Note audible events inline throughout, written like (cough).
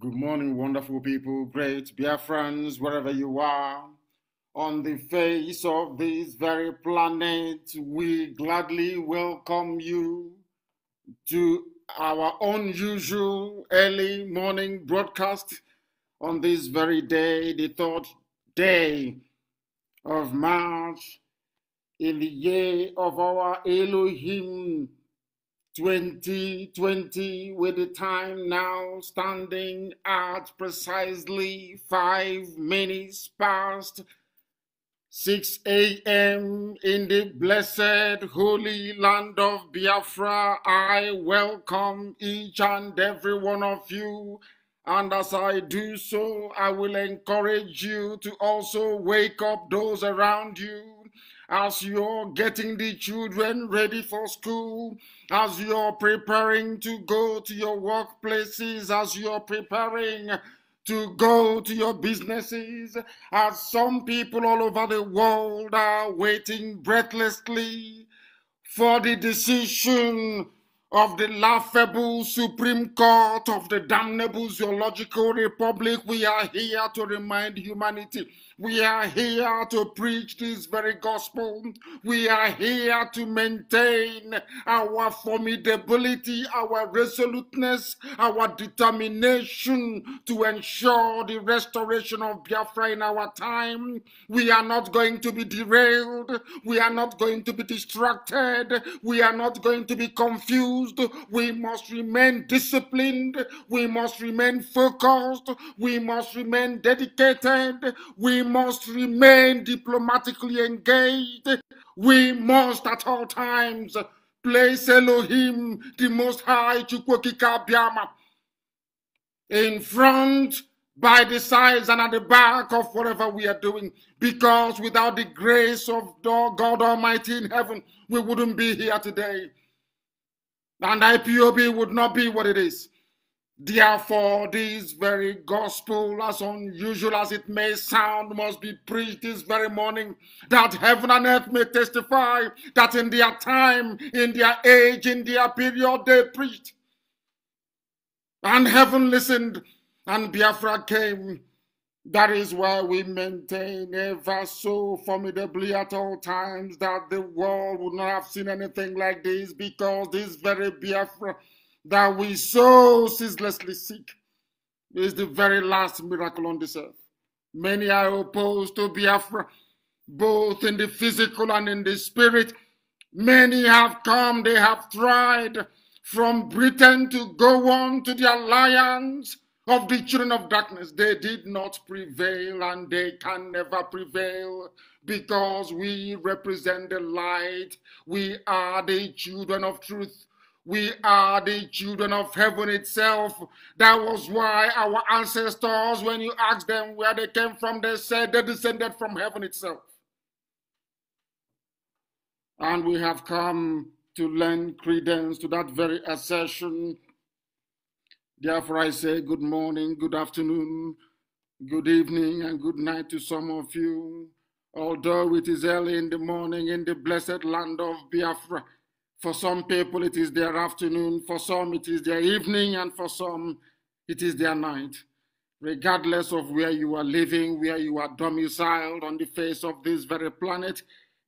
Good morning, wonderful people, great dear friends, wherever you are. On the face of this very planet, we gladly welcome you to our unusual early morning broadcast on this very day, the third day of March, in the year of our Elohim 2020 with the time now standing at precisely 5 minutes past 6 a.m. in the blessed holy land of Biafra. I welcome each and every one of you. And as I do so, I will encourage you to also wake up those around you as you're getting the children ready for school, as you're preparing to go to your workplaces, as you're preparing to go to your businesses, as some people all over the world are waiting breathlessly for the decision of the laughable Supreme Court of the damnable Zoological Republic, we are here to remind humanity. We are here to preach this very gospel. We are here to maintain our formidability, our resoluteness, our determination to ensure the restoration of Biafra in our time. We are not going to be derailed. We are not going to be distracted. We are not going to be confused we must remain disciplined. We must remain focused. We must remain dedicated. We must remain diplomatically engaged. We must at all times place Elohim, the Most High, Chukwokika Biama, in front, by the sides, and at the back of whatever we are doing. Because without the grace of God Almighty in heaven, we wouldn't be here today and IPOB would not be what it is. Therefore, this very gospel, as unusual as it may sound, must be preached this very morning that heaven and earth may testify that in their time, in their age, in their period, they preached. And heaven listened, and Biafra came, that is why we maintain ever so formidably at all times that the world would not have seen anything like this because this very Biafra that we so ceaselessly seek is the very last miracle on this earth. Many are opposed to Biafra, both in the physical and in the spirit. Many have come, they have tried from Britain to go on to the alliance of the children of darkness. They did not prevail and they can never prevail because we represent the light. We are the children of truth. We are the children of heaven itself. That was why our ancestors, when you ask them where they came from, they said they descended from heaven itself. And we have come to lend credence to that very assertion Therefore, I say good morning, good afternoon, good evening, and good night to some of you. Although it is early in the morning in the blessed land of Biafra, for some people it is their afternoon, for some it is their evening, and for some it is their night. Regardless of where you are living, where you are domiciled on the face of this very planet,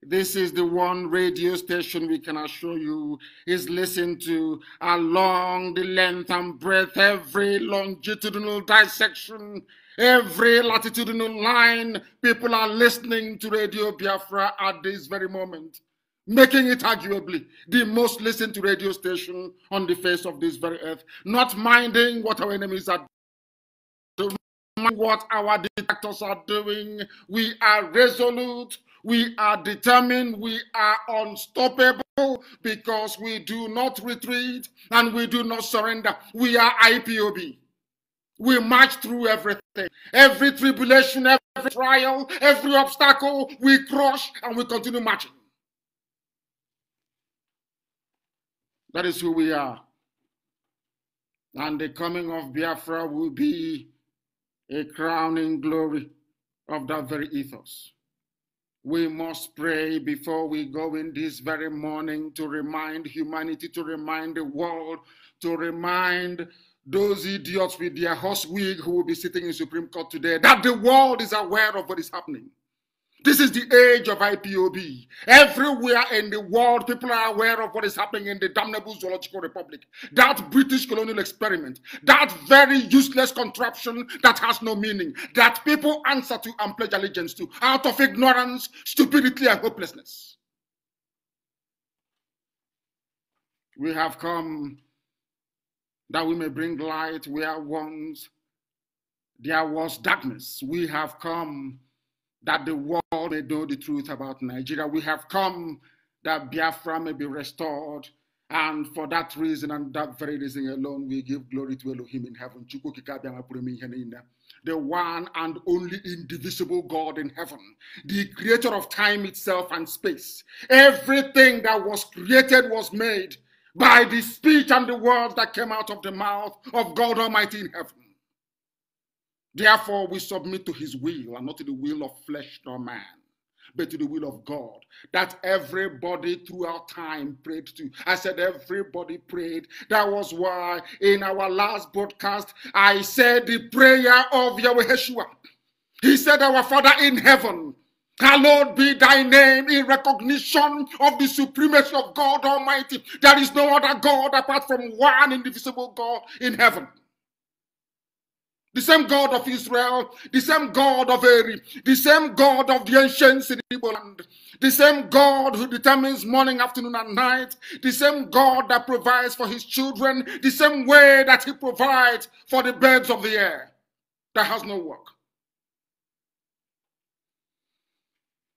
this is the one radio station we can assure you is listened to along the length and breadth, every longitudinal dissection, every latitudinal line. People are listening to Radio Biafra at this very moment, making it arguably the most listened to radio station on the face of this very earth, not minding what our enemies are doing, what our dictators are doing. We are resolute we are determined, we are unstoppable because we do not retreat and we do not surrender. We are IPOB. We march through everything, every tribulation, every trial, every obstacle, we crush and we continue marching. That is who we are. And the coming of Biafra will be a crowning glory of that very ethos. We must pray before we go in this very morning to remind humanity, to remind the world, to remind those idiots with their horse wig who will be sitting in Supreme Court today that the world is aware of what is happening. This is the age of IPOB. Everywhere in the world, people are aware of what is happening in the damnable zoological republic. That British colonial experiment, that very useless contraption that has no meaning, that people answer to and pledge allegiance to out of ignorance, stupidity, and hopelessness. We have come that we may bring light where once there was darkness. We have come that the world may know the truth about Nigeria. We have come that Biafra may be restored. And for that reason and that very reason alone, we give glory to Elohim in heaven. The one and only indivisible God in heaven, the creator of time itself and space. Everything that was created was made by the speech and the words that came out of the mouth of God Almighty in heaven. Therefore, we submit to his will and not to the will of flesh nor man, but to the will of God. That everybody throughout time prayed to. I said, everybody prayed. That was why in our last broadcast, I said the prayer of Yahweh Yeshua. He said, Our Father in heaven, Hallowed be thy name in recognition of the supremacy of God Almighty. There is no other God apart from one indivisible God in heaven. The same God of Israel, the same God of Eri, the same God of the ancient Igbo land, the same God who determines morning, afternoon, and night, the same God that provides for his children, the same way that he provides for the birds of the air that has no work.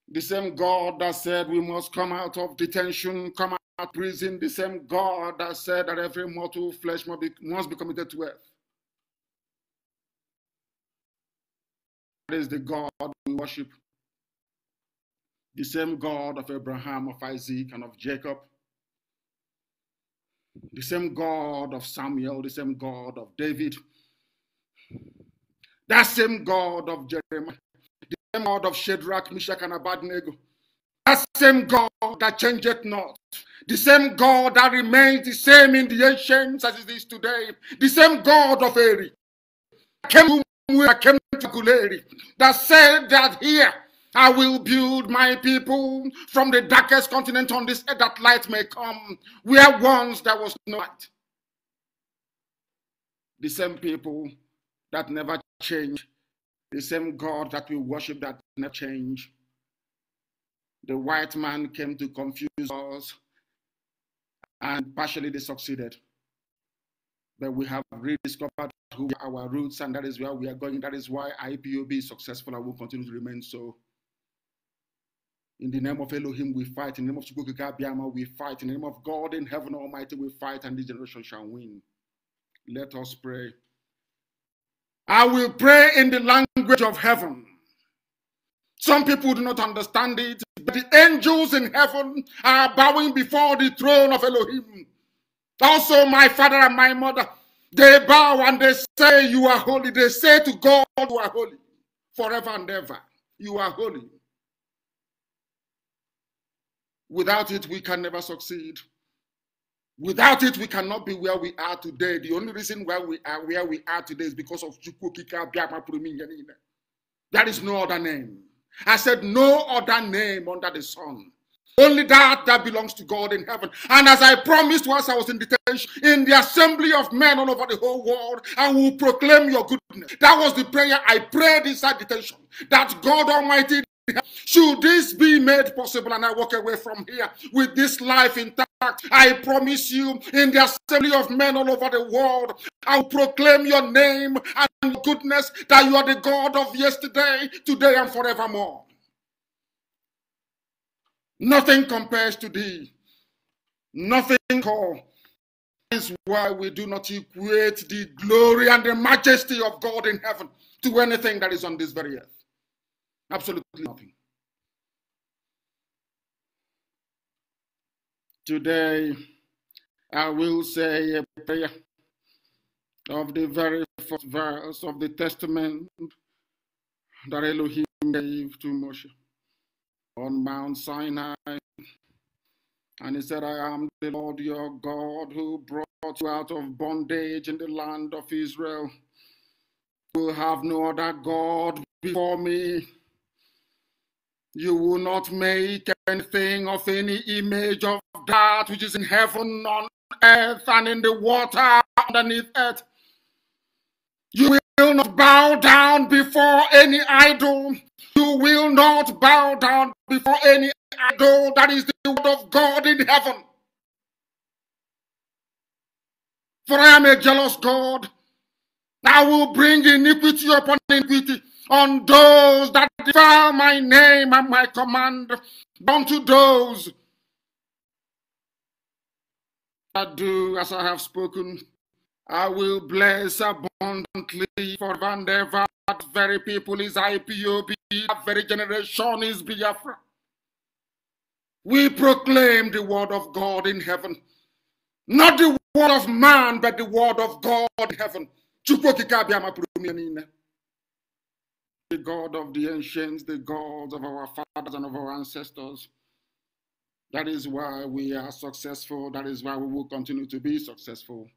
The same God that said we must come out of detention, come out of prison, the same God that said that every mortal flesh must be, must be committed to earth is the God we worship. The same God of Abraham, of Isaac, and of Jacob. The same God of Samuel, the same God of David. That same God of Jeremiah, the same God of Shadrach, Meshach, and Abednego. That same God that changeth not. The same God that remains the same in the ancients as it is today. The same God of Eric came I came to Guleri that said that here I will build my people from the darkest continent on this earth that light may come, where once there was no light. The same people that never change, the same God that we worship that never change. The white man came to confuse us, and partially they succeeded that we have rediscovered who our roots and that is where we are going. That is why IPOB is successful and will continue to remain so. In the name of Elohim, we fight. In the name of Chukwukikabiyama, we fight. In the name of God in heaven almighty, we fight, and this generation shall win. Let us pray. I will pray in the language of heaven. Some people do not understand it, but the angels in heaven are bowing before the throne of Elohim Also, my father and my mother, they bow and they say, You are holy. They say to God, You are holy forever and ever. You are holy. Without it, we can never succeed. Without it, we cannot be where we are today. The only reason why we are where we are today is because of Chukwukika Biama There is no other name. I said, No other name under the sun Only that that belongs to God in heaven. And as I promised once I was in detention, in the assembly of men all over the whole world, I will proclaim your goodness. That was the prayer I prayed inside detention. That God Almighty should this be made possible and I walk away from here with this life intact, I promise you, in the assembly of men all over the world, I'll proclaim your name and goodness that you are the God of yesterday, today, and forevermore. Nothing compares to thee. Nothing call. Is why we do not equate the glory and the majesty of God in heaven to anything that is on this very earth. Absolutely nothing. Today, I will say a prayer of the very first verse of the testament that Elohim gave to Moshe on Mount Sinai. And he said, I am the Lord your God who brought you out of bondage in the land of Israel. You will have no other God before me. You will not make anything of any image of that which is in heaven, on earth, and in the water underneath earth. You will not bow down before any idol you will not bow down before any idol that is the word of God in heaven. For I am a jealous God. I will bring iniquity upon iniquity on those that defile my name and my command, unto those that do as I have spoken. I will bless abundantly for and ever. That very people is IPOB, that very generation is Biafra. We proclaim the word of God in heaven. Not the word of man, but the word of God in heaven. The God of the ancients, the God of our fathers and of our ancestors. That is why we are successful. That is why we will continue to be successful.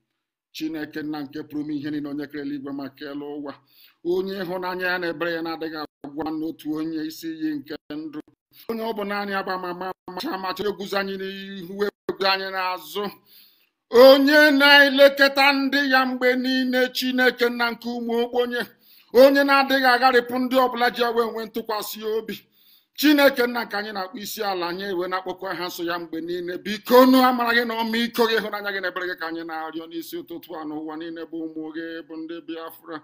chineke nna nke pụrụ ime ihe niile onye kere eluigwe ma kelee ụwa onye ịhụnanya ya na ebere ya na-adịghị agwa n'otu onye isi iyi nke ndụ onye ọ bụ naanị agba amama amacha amacha anyị n'ihu egwu anyị n'azụ onye na-elekọta ndị ya mgbe niile chineke nna nke ụmụ okponye onye na-adịghị agharịpụ ndị ọbụla ji ewe nwe ntụkwasị obi chineke nna nke anyị na-akpọ isi ala anyị ewe na-akpọkọ ha nso ya mgbe niile biko nu amara gị na ọmịiko gị ịhụnanya gị na ebere gị ka anyị na-arịọ n'isi ụtụtụ a n'ụwa niile bụ ụmụ gị bụ ndị biafra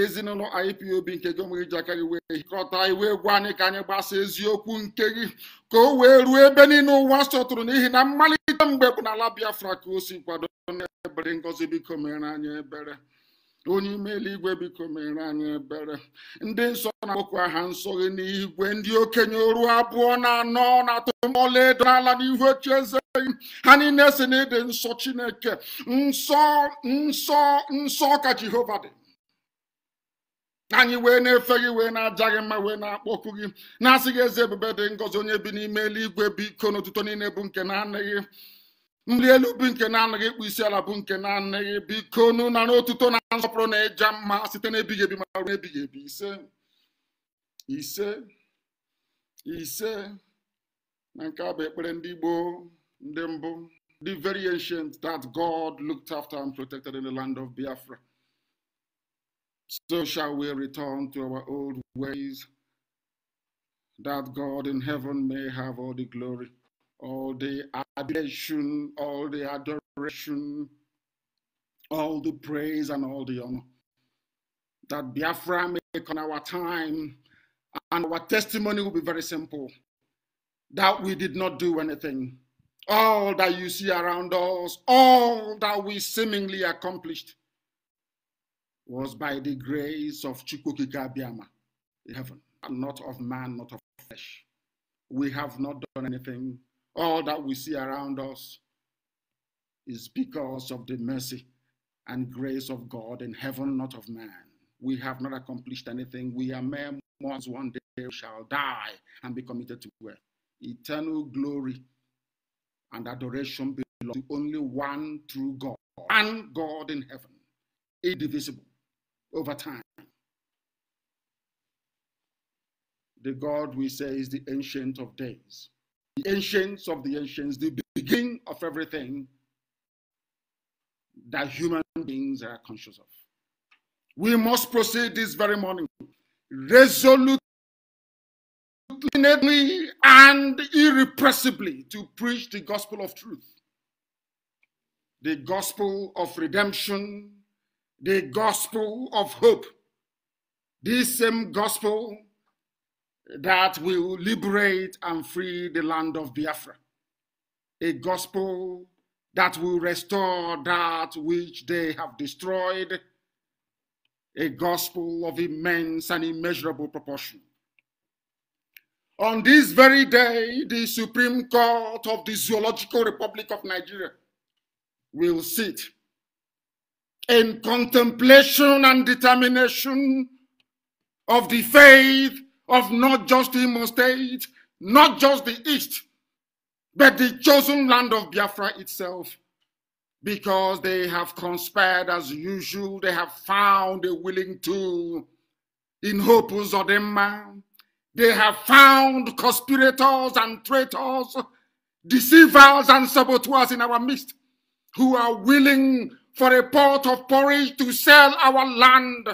ezinụlọ ipob nke gị onwe gị ji aka gị wee hịkọta iwe egwu anyị ka anyị gbasa eziokwu nke gị ka o wee ruo ebe niile ụwa sọtụrụ n'ihi na mmalite mgbe bụ n'ala biafra ka o si kwado ebere ngozi biko mere anyị ebere onye ime eluigwe biko mere anyị ebere ndị nsọ na-akpọkwa aha nsọ gị n'igwe ndị okenye oru abụọ na anọ na atọ edo n'ala n'ihu eze ha niile si na ịdị nsọ chineke nsọ nsọ nsọ ka jehova dị anyị wee na-efe gị wee na-aja gị mma wee na-akpọku gị na-asị gị eze ebube dị ngọzi onye bi n'ime eluigwe biko n'ụtụtụ niile bụ nke na-anị gị nri elu bụ nke na-anaghị ịkpụ isi ala bụ nke na-anaghị biko nụ na n'otuto na nsọpụrụ na ịja mma site n'ebighị ebi ma ruo n'ebighị ebi ise ise ise na nke a ekpere ndị Igbo ndị mbụ the very ancient that God looked after and protected in the land of Biafra so shall we return to our old ways that God in heaven may have all the glory all the adoration, all the adoration, all the praise and all the honor. That Biafra make on our time and our testimony will be very simple. That we did not do anything. All that you see around us, all that we seemingly accomplished was by the grace of Chukwukika Biama in heaven, and not of man, not of flesh. We have not done anything all that we see around us is because of the mercy and grace of God in heaven, not of man. We have not accomplished anything. We are mere mortals. One day shall die and be committed to where Eternal glory and adoration belong to only one true God and God in heaven, indivisible over time. The God we say is the Ancient of Days the ancients of the ancients, the beginning of everything that human beings are conscious of. We must proceed this very morning resolutely and irrepressibly to preach the gospel of truth, the gospel of redemption, the gospel of hope. This same gospel that will liberate and free the land of Biafra. A gospel that will restore that which they have destroyed. A gospel of immense and immeasurable proportion. On this very day, the Supreme Court of the Zoological Republic of Nigeria will sit in contemplation and determination of the faith of not just Imo State, not just the East, but the chosen land of Biafra itself, because they have conspired as usual. They have found a willing tool in Hopu Zodema. They have found conspirators and traitors, deceivers and saboteurs in our midst who are willing for a pot of porridge to sell our land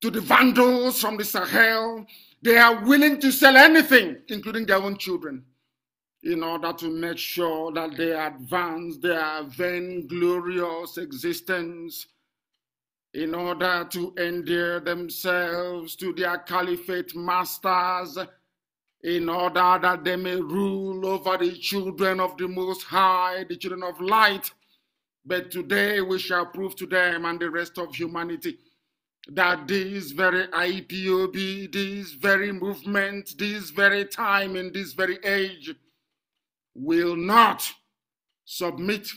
to the Vandals from the Sahel. They are willing to sell anything, including their own children, in order to make sure that they advance their vainglorious existence, in order to endear themselves to their caliphate masters, in order that they may rule over the children of the Most High, the children of light. But today we shall prove to them and the rest of humanity that this very IPOB, this very movement, this very time, and this very age will not submit,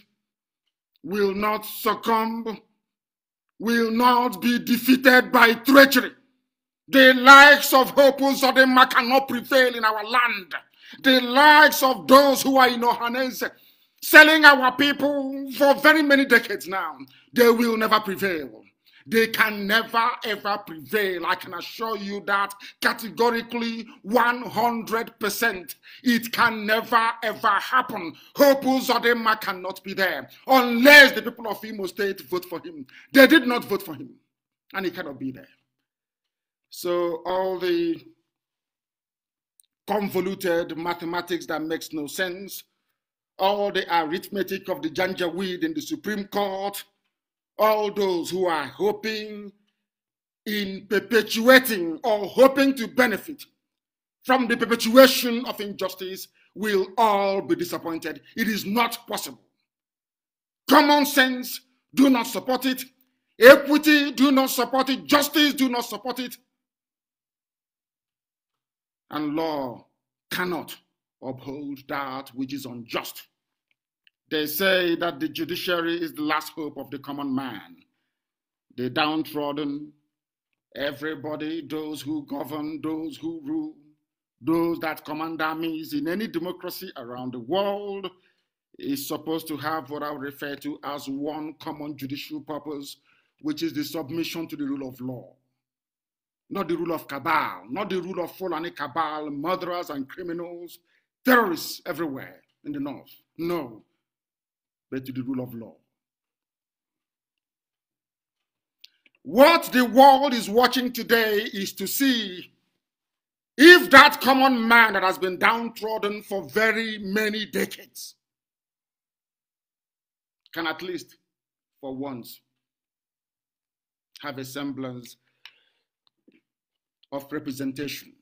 will not succumb, will not be defeated by treachery. The likes of Hopus or them cannot prevail in our land. The likes of those who are in Ohanese selling our people for very many decades now, they will never prevail they can never ever prevail. I can assure you that categorically 100%. It can never ever happen. Hope Uzodema cannot be there unless the people of Imo State vote for him. They did not vote for him and he cannot be there. So all the convoluted mathematics that makes no sense, all the arithmetic of the janjaweed in the Supreme Court, all those who are hoping in perpetuating or hoping to benefit from the perpetuation of injustice will all be disappointed. It is not possible. Common sense do not support it. Equity do not support it. Justice do not support it. And law cannot uphold that which is unjust. They say that the judiciary is the last hope of the common man. The downtrodden, everybody, those who govern, those who rule, those that command armies in any democracy around the world is supposed to have what I refer to as one common judicial purpose, which is the submission to the rule of law. Not the rule of cabal, not the rule of Fulani cabal, murderers and criminals, terrorists everywhere in the north. No, but to the rule of law. What the world is watching today is to see if that common man that has been downtrodden for very many decades can at least for once have a semblance of representation.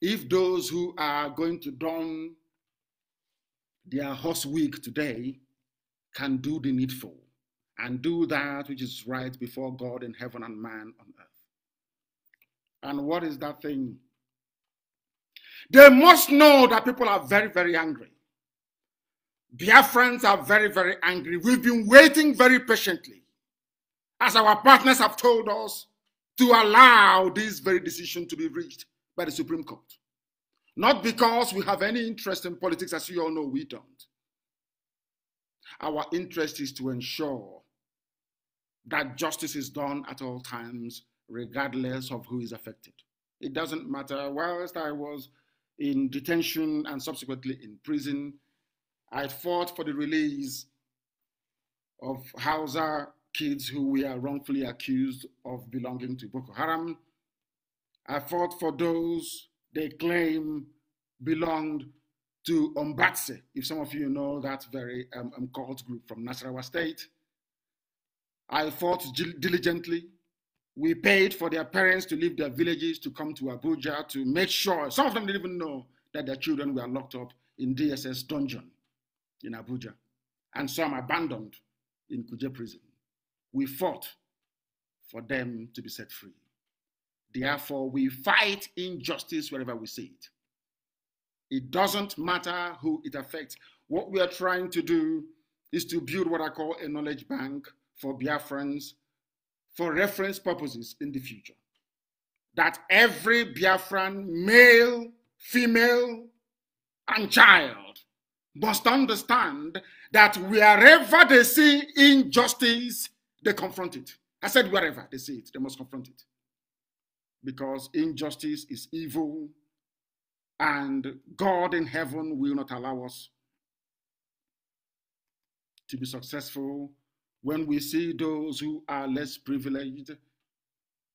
If those who are going to don their horse week today can do the needful and do that which is right before God in heaven and man on earth. And what is that thing? They must know that people are very, very angry. Their friends are very, very angry. We've been waiting very patiently, as our partners have told us, to allow this very decision to be reached by the Supreme Court. Not because we have any interest in politics, as you all know, we don't. Our interest is to ensure that justice is done at all times, regardless of who is affected. It doesn't matter. Whilst I was in detention and subsequently in prison, I fought for the release of Hausa kids who were wrongfully accused of belonging to Boko Haram. I fought for those they claim belonged to Ombatse, if some of you know that very um, um, cult group from Nasarawa State. I fought diligently. We paid for their parents to leave their villages to come to Abuja to make sure, some of them didn't even know that their children were locked up in DSS dungeon in Abuja, and some abandoned in Kuje prison. We fought for them to be set free. Therefore, we fight injustice wherever we see it. It doesn't matter who it affects. What we are trying to do is to build what I call a knowledge bank for Biafrans for reference purposes in the future. That every Biafran, male, female, and child must understand that wherever they see injustice, they confront it. I said wherever they see it, they must confront it because injustice is evil and God in heaven will not allow us to be successful when we see those who are less privileged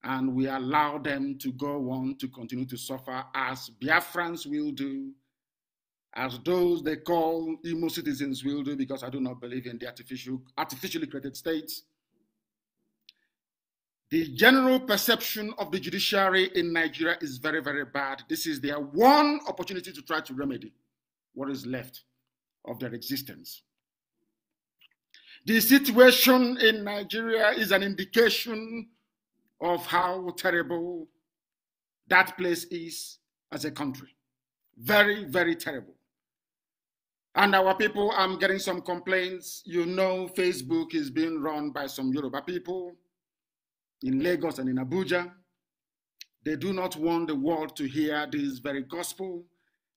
and we allow them to go on to continue to suffer as Biafrans will do, as those they call "emo citizens will do, because I do not believe in the artificial, artificially created states. The general perception of the judiciary in Nigeria is very, very bad. This is their one opportunity to try to remedy what is left of their existence. The situation in Nigeria is an indication of how terrible that place is as a country. Very, very terrible. And our people, I'm getting some complaints. You know, Facebook is being run by some Yoruba people in Lagos and in Abuja. They do not want the world to hear this very gospel.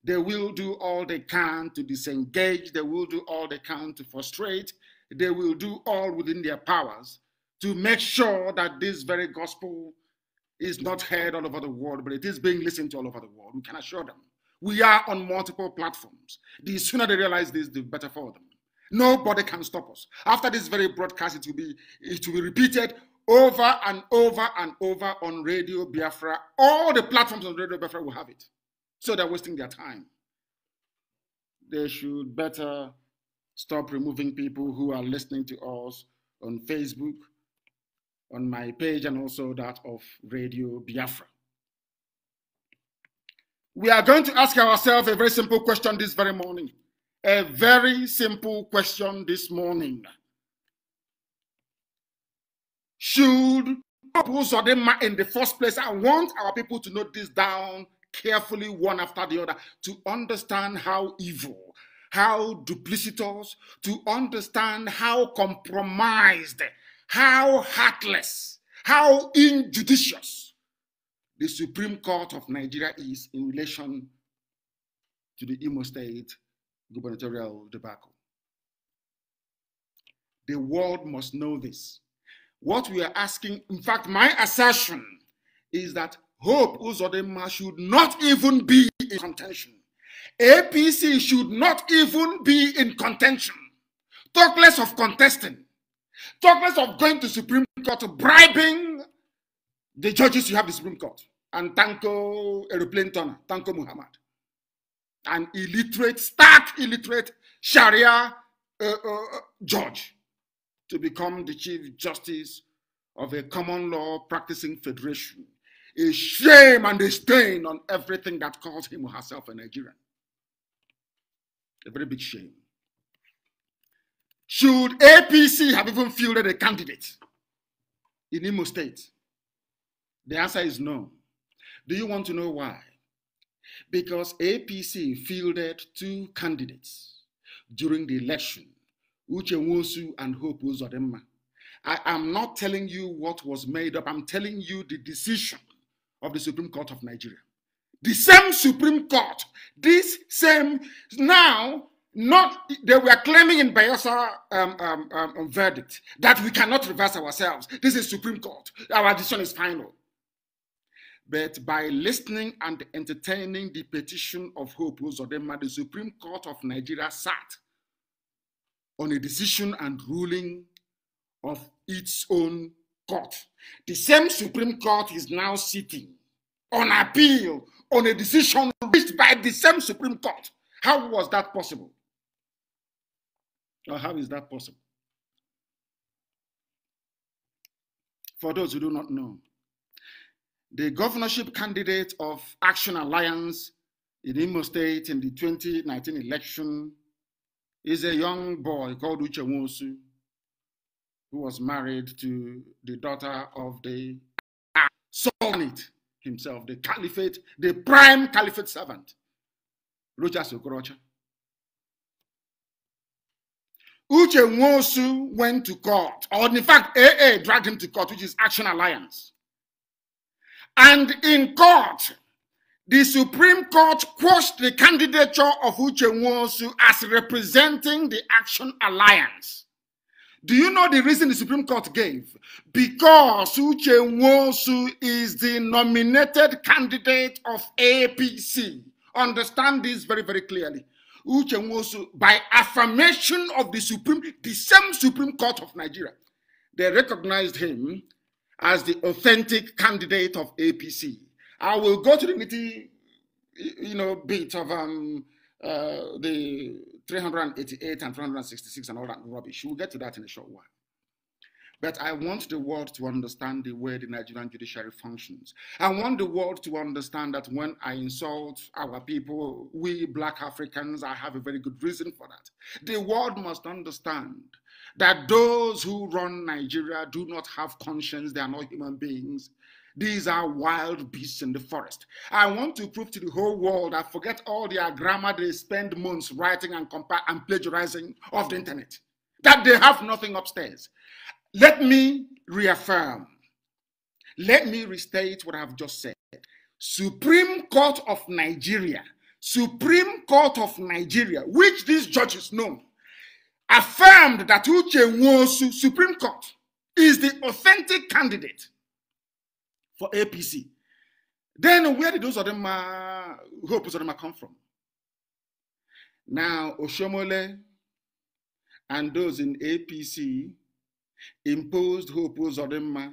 They will do all they can to disengage. They will do all they can to frustrate. They will do all within their powers to make sure that this very gospel is not heard all over the world, but it is being listened to all over the world. We can assure them. We are on multiple platforms. The sooner they realize this, the better for them. Nobody can stop us. After this very broadcast, it will be it will be repeated over and over and over on Radio Biafra. All the platforms on Radio Biafra will have it. So they're wasting their time. They should better stop removing people who are listening to us on Facebook, on my page, and also that of Radio Biafra. We are going to ask ourselves a very simple question this very morning. A very simple question this morning should oppose them in the first place. I want our people to note this down carefully, one after the other, to understand how evil, how duplicitous, to understand how compromised, how heartless, how injudicious the Supreme Court of Nigeria is in relation to the Imo State gubernatorial debacle. The world must know this. What we are asking, in fact, my assertion is that Hope Uzodema should not even be in contention. APC should not even be in contention. Talk less of contesting. Talk less of going to Supreme Court, bribing the judges you have the Supreme Court. And Tanko Aeroplane Turner, Tanko Muhammad. An illiterate, stark illiterate Sharia uh, uh, judge to become the Chief Justice of a common law practicing federation. A shame and a stain on everything that calls him or herself a Nigerian. A very big shame. Should APC have even fielded a candidate in Imo State? The answer is no. Do you want to know why? Because APC fielded two candidates during the election Uche Wosu and Hope Uzodema. I am not telling you what was made up. I'm telling you the decision of the Supreme Court of Nigeria. The same Supreme Court, this same, now, not, they were claiming in Bayelsa um, um, um, um verdict that we cannot reverse ourselves. This is Supreme Court. Our decision is final. But by listening and entertaining the petition of Hope Uzodema, the Supreme Court of Nigeria sat on a decision and ruling of its own court. The same Supreme Court is now sitting on appeal on a decision reached by the same Supreme Court. How was that possible? Or how is that possible? For those who do not know, the governorship candidate of Action Alliance in Imo State in the 2019 election is a young boy called Uche Wonsu, who was married to the daughter of the Sultanate himself, the caliphate, the prime caliphate servant, Rochas Uche Uchenwosu went to court, or in fact, AA dragged him to court, which is Action Alliance. And in court, the Supreme Court quashed the candidature of Uche Nwosu as representing the Action Alliance. Do you know the reason the Supreme Court gave? Because Uche Nwosu is the nominated candidate of APC. Understand this very, very clearly. Uche Nwosu, by affirmation of the Supreme, the same Supreme Court of Nigeria, they recognized him as the authentic candidate of APC. I will go to the nitty, you know, bit of um, uh, the 388 and 366 and all that rubbish. We'll get to that in a short while. But I want the world to understand the way the Nigerian judiciary functions. I want the world to understand that when I insult our people, we black Africans, I have a very good reason for that. The world must understand that those who run Nigeria do not have conscience, they are not human beings. These are wild beasts in the forest. I want to prove to the whole world I forget all their grammar they spend months writing and, compa- and plagiarizing off the internet, that they have nothing upstairs. Let me reaffirm, let me restate what I've just said. Supreme Court of Nigeria, Supreme Court of Nigeria, which these judges know, affirmed that Uche Nwosu, Supreme Court, is the authentic candidate for APC. Then where did those Odema, oppose Odema come from? Now, Oshomole and those in APC imposed Hope Odema uh,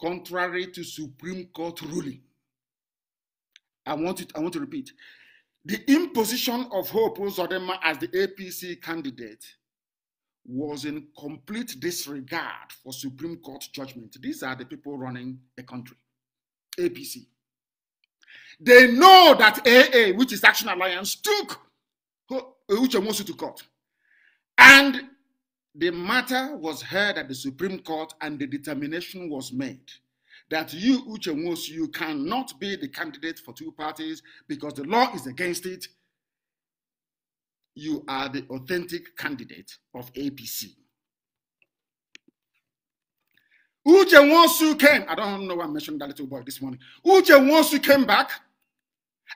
contrary to Supreme Court ruling. I want, it, I want to repeat. The imposition of Hope Zodema uh, as the APC candidate was in complete disregard for Supreme Court judgment. These are the people running a country. APC. They know that AA, which is Action Alliance, took Uche you to court. And the matter was heard at the Supreme Court and the determination was made that you, Uche Mosu, you cannot be the candidate for two parties because the law is against it. You are the authentic candidate of APC. Uche Wonsu came. I don't know why I mentioned that little boy this morning. Uche Wonsu came back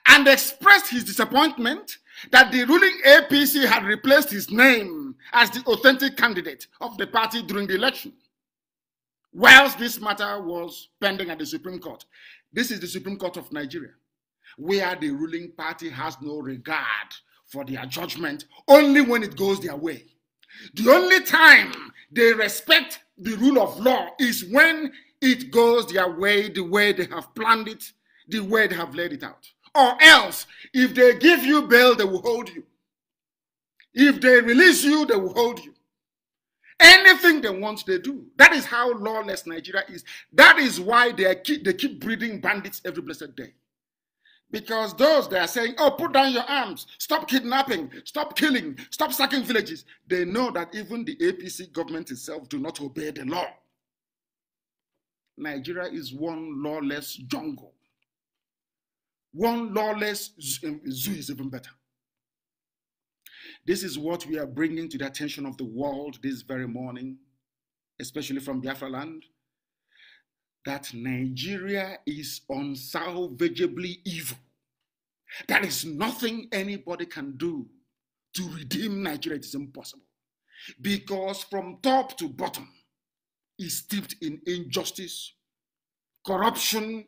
and expressed his disappointment that the ruling APC had replaced his name as the authentic candidate of the party during the election. Whilst this matter was pending at the Supreme Court, this is the Supreme Court of Nigeria, where the ruling party has no regard for their judgment only when it goes their way. The only time they respect the rule of law is when it goes their way, the way they have planned it, the way they have laid it out. Or else, if they give you bail, they will hold you. If they release you, they will hold you. Anything they want, they do. That is how lawless Nigeria is. That is why they keep, they keep breeding bandits every blessed day. Because those that are saying, oh, put down your arms, stop kidnapping, stop killing, stop sacking villages, they know that even the APC government itself do not obey the law. Nigeria is one lawless jungle. One lawless um, zoo is even better. This is what we are bringing to the attention of the world this very morning, especially from Biafra land that Nigeria is unsalvageably evil. There is nothing anybody can do to redeem Nigeria. It is impossible. Because from top to bottom is steeped in injustice, corruption,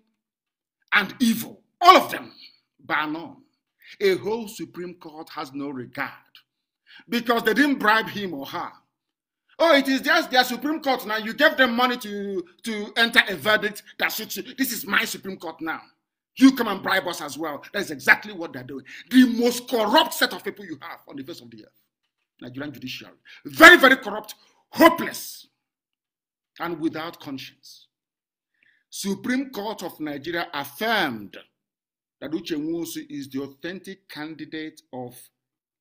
and evil. All of them, bar none. A whole Supreme Court has no regard because they didn't bribe him or her Oh, it is just their Supreme Court now. You gave them money to, to enter a verdict that suits you. This is my Supreme Court now. You come and bribe us as well. That's exactly what they're doing. The most corrupt set of people you have on the face of the earth Nigerian judiciary. Very, very corrupt, hopeless, and without conscience. Supreme Court of Nigeria affirmed that Uche Nwosu is the authentic candidate of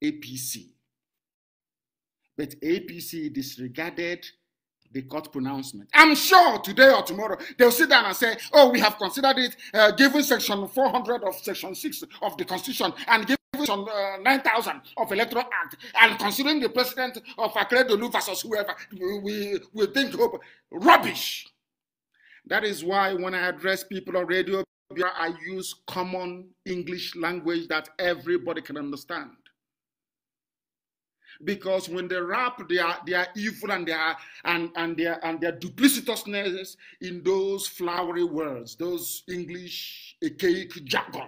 APC but APC disregarded the court pronouncement. I'm sure today or tomorrow they'll sit down and say, oh, we have considered it, uh, given section 400 of section 6 of the Constitution and given section uh, 9000 of Electoral Act and considering the president of Akredolu versus whoever, we, we think hope. Rubbish! That is why when I address people on radio, I use common English language that everybody can understand because when they wrap their, their evil and their and, and their and their duplicitousness in those flowery words, those English archaic jargon,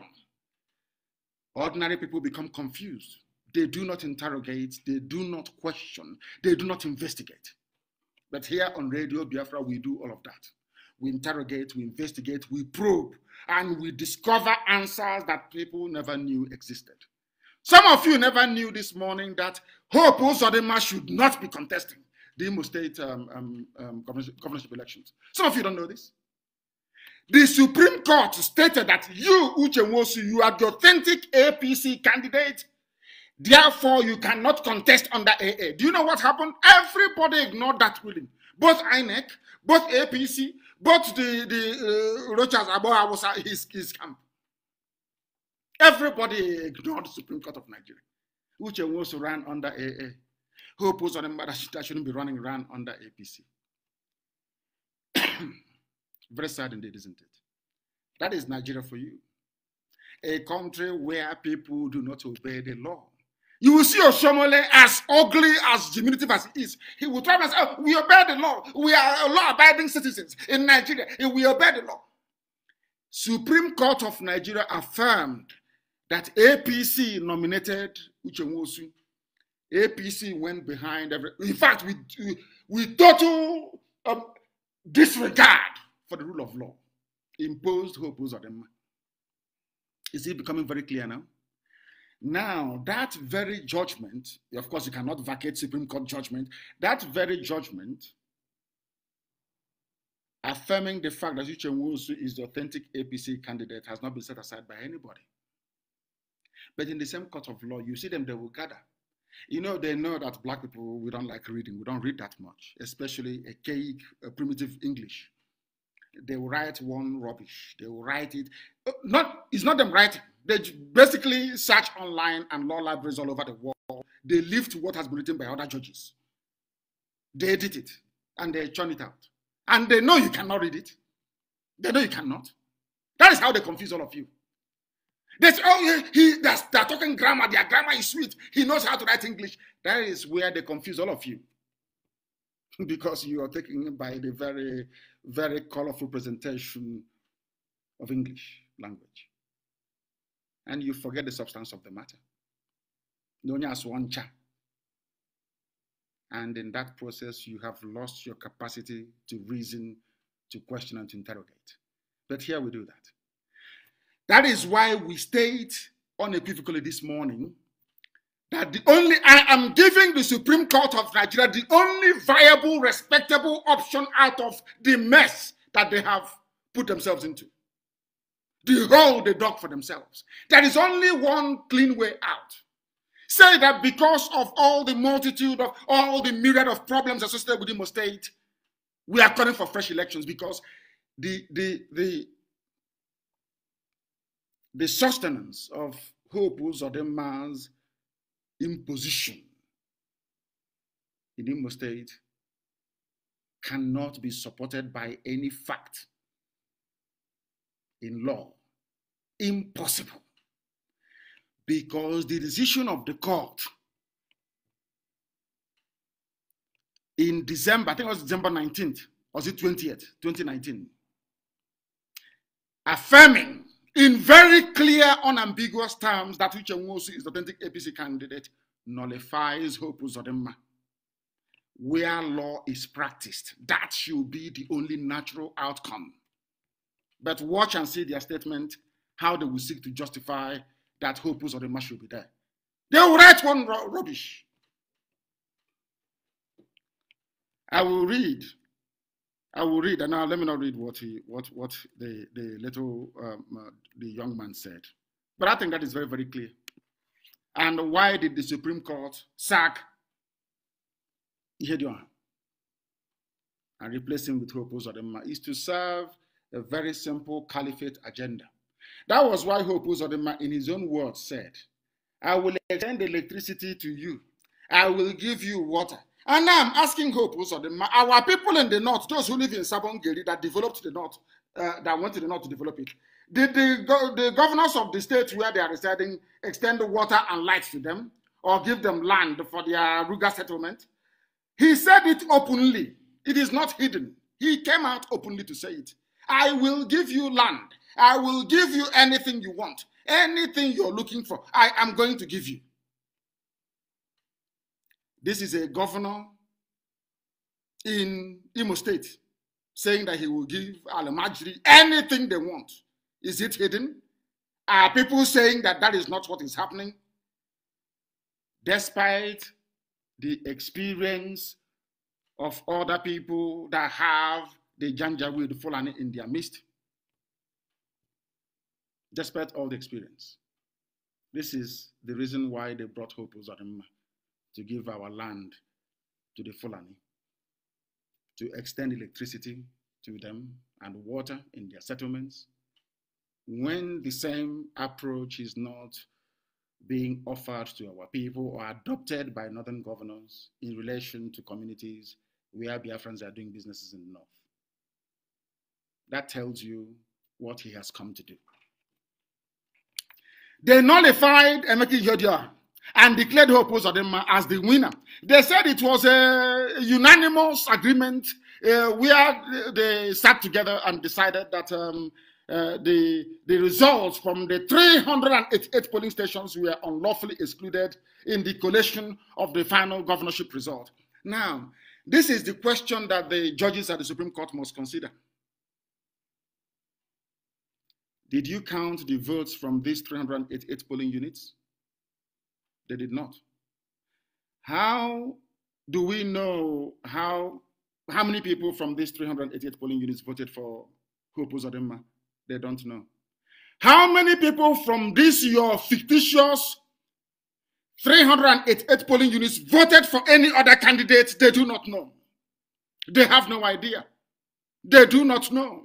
ordinary people become confused. They do not interrogate, they do not question, they do not investigate. But here on Radio Biafra, we do all of that. We interrogate, we investigate, we probe, and we discover answers that people never knew existed. Some of you never knew this morning that Hope Uzodema should not be contesting the Imo State um, um, um, governorship elections. Some of you don't know this. The Supreme Court stated that you, Uche Nwosu, you are the authentic APC candidate. Therefore, you cannot contest under AA. Do you know what happened? Everybody ignored that ruling. Both INEC, both APC, both the, the uh, Rochas Aboha was his, his camp. Everybody ignored the Supreme Court of Nigeria. which was run under AA. Who opposed on matter that shouldn't be running around under APC. (clears throat) Very sad indeed, isn't it? That is Nigeria for you. A country where people do not obey the law. You will see Oshomole as ugly, as diminutive as he is. He will try and say, oh, we obey the law. We are law-abiding citizens in Nigeria. We obey the law. Supreme Court of Nigeria affirmed that APC nominated Uchemosu. APC went behind every. In fact, we we total um, disregard for the rule of law imposed hopes on them. Is it becoming very clear now? Now, that very judgment, of course, you cannot vacate Supreme Court judgment. That very judgment affirming the fact that Uche Nwosu is the authentic APC candidate has not been set aside by anybody. But in the same court of law, you see them, they will gather. You know, they know that black people, we don't like reading. We don't read that much, especially archaic, cake, primitive English. They will write one rubbish. They will write it. Oh, not, it's not them writing. They basically search online and law libraries all over the world. They lift what has been written by other judges. They edit it and they churn it out. And they know you cannot read it. They know you cannot. That is how they confuse all of you. That's oh he, he that's they're talking grammar. Their grammar is sweet. He knows how to write English. That is where they confuse all of you. (laughs) because you are taken by the very, very colorful presentation of English language. And you forget the substance of the matter. Known as one cha. And in that process, you have lost your capacity to reason, to question, and to interrogate. But here we do that. That is why we state unequivocally this morning that the only I am giving the Supreme Court of Nigeria the only viable, respectable option out of the mess that they have put themselves into. The hole they dug for themselves. There is only one clean way out. Say that because of all the multitude of all the myriad of problems associated with the state, we are calling for fresh elections because the the the the sustenance of hope or the man's imposition in Imo State cannot be supported by any fact in law. Impossible. Because the decision of the court in December, I think it was December 19th, was it 20th, 2019, affirming in very clear, unambiguous terms that Uche Nwosu is the authentic APC candidate nullifies Hope Uzodinma. Where law is practiced, that should be the only natural outcome. But watch and see their statement, how they will seek to justify that Hope Uzodinma should be there. They will write one rubbish. I will read I will read, and now let me not read what he, what, what the, the little, um, uh, the young man said. But I think that is very, very clear. And why did the Supreme Court sack Ihedioha and replace him with Hope Uzodinma? Is to serve a very simple caliphate agenda. That was why Hope Uzodinma, in his own words, said, "I will extend electricity to you. I will give you water." And now I'm asking Hope Uzodinma, our people in the north, those who live in Sabongeri that developed the north, uh, that went to the north to develop it, did the, go the governors of the states where they are residing extend water and light to them or give them land for their Ruga settlement? He said it openly. It is not hidden. He came out openly to say it. I will give you land. I will give you anything you want. Anything you're looking for, I am going to give you. This is a governor in Imo State saying that he will give Al Majri anything they want. Is it hidden? Are people saying that that is not what is happening? Despite the experience of other people that have the Janjaweed Fulani in their midst, despite all the experience. This is the reason why they brought Hope Uzadimma to give our land to the Fulani, to extend electricity to them and water in their settlements, when the same approach is not being offered to our people or adopted by northern governors in relation to communities where Biafrans are doing businesses in the north. That tells you what he has come to do. They nullified Emeki Jodia and declared her Osadema as the winner. They said it was a unanimous agreement uh, where they sat together and decided that um, uh, the, the results from the 388 polling stations were unlawfully excluded in the collation of the final governorship result. Now, this is the question that the judges at the Supreme Court must consider. Did you count the votes from these 388 polling units? They did not. How do we know how how many people from these 388 polling units voted for Hope Uzodinma? They don't know. How many people from this your fictitious 388 polling units voted for any other candidate? They do not know. They have no idea. They do not know.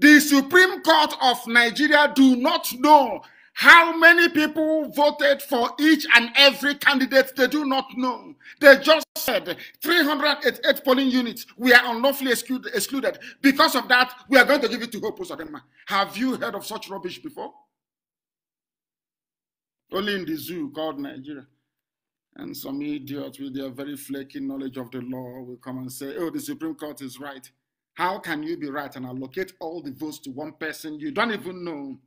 The Supreme Court of Nigeria do not know how many people voted for each and every candidate, they do not know. They just said 388 polling units We are unlawfully excluded. Because of that, we are going to give it to Hope Uzodema. Have you heard of such rubbish before? Only in the zoo called Nigeria. And some idiots with their very flaky knowledge of the law will come and say, oh, the Supreme Court is right. How can you be right and allocate all the votes to one person you don't even know?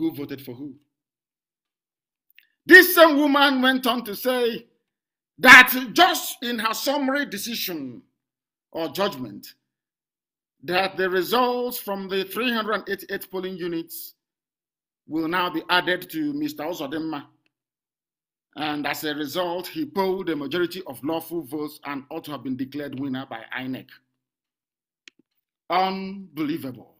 who voted for who. This same woman went on to say that just in her summary decision or judgment, that the results from the 388 polling units will now be added to Mr. Ozodema. And as a result, he polled a majority of lawful votes and ought to have been declared winner by INEC. Unbelievable.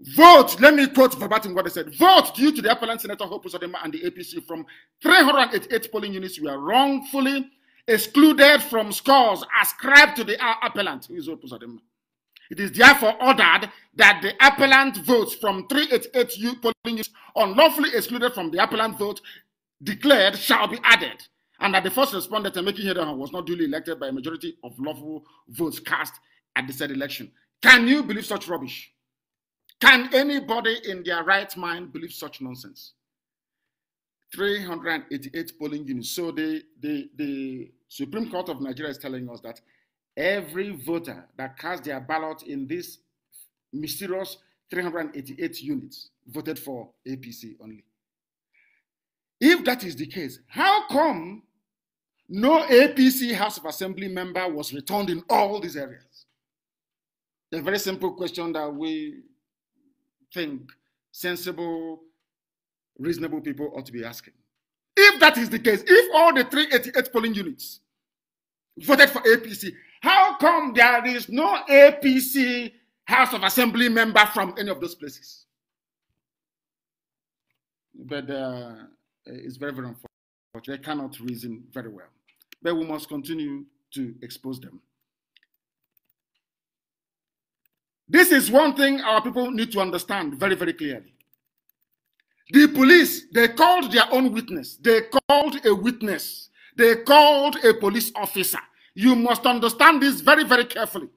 Vote, let me quote verbatim what they said. Vote due to the appellant Senator Hope Uzodema and the APC from 388 polling units were wrongfully excluded from scores ascribed to the appellant, who is It is therefore ordered that the appellant votes from 388 polling units unlawfully excluded from the appellant vote declared shall be added, and that the first respondent making here was not duly elected by a majority of lawful votes cast at the said election. Can you believe such rubbish? Can anybody in their right mind believe such nonsense? 388 polling units. So the, the, the Supreme Court of Nigeria is telling us that every voter that cast their ballot in this mysterious 388 units voted for APC only. If that is the case, how come no APC House of Assembly member was returned in all these areas? A very simple question that we think sensible, reasonable people ought to be asking. If that is the case, if all the 388 polling units voted for APC, how come there is no APC House of Assembly member from any of those places? But uh, it's very, very unfortunate. They cannot reason very well. But we must continue to expose them. This is one thing our people need to understand very, very clearly. The police, they called their own witness. They called a witness. They called a police officer. You must understand this very, very carefully.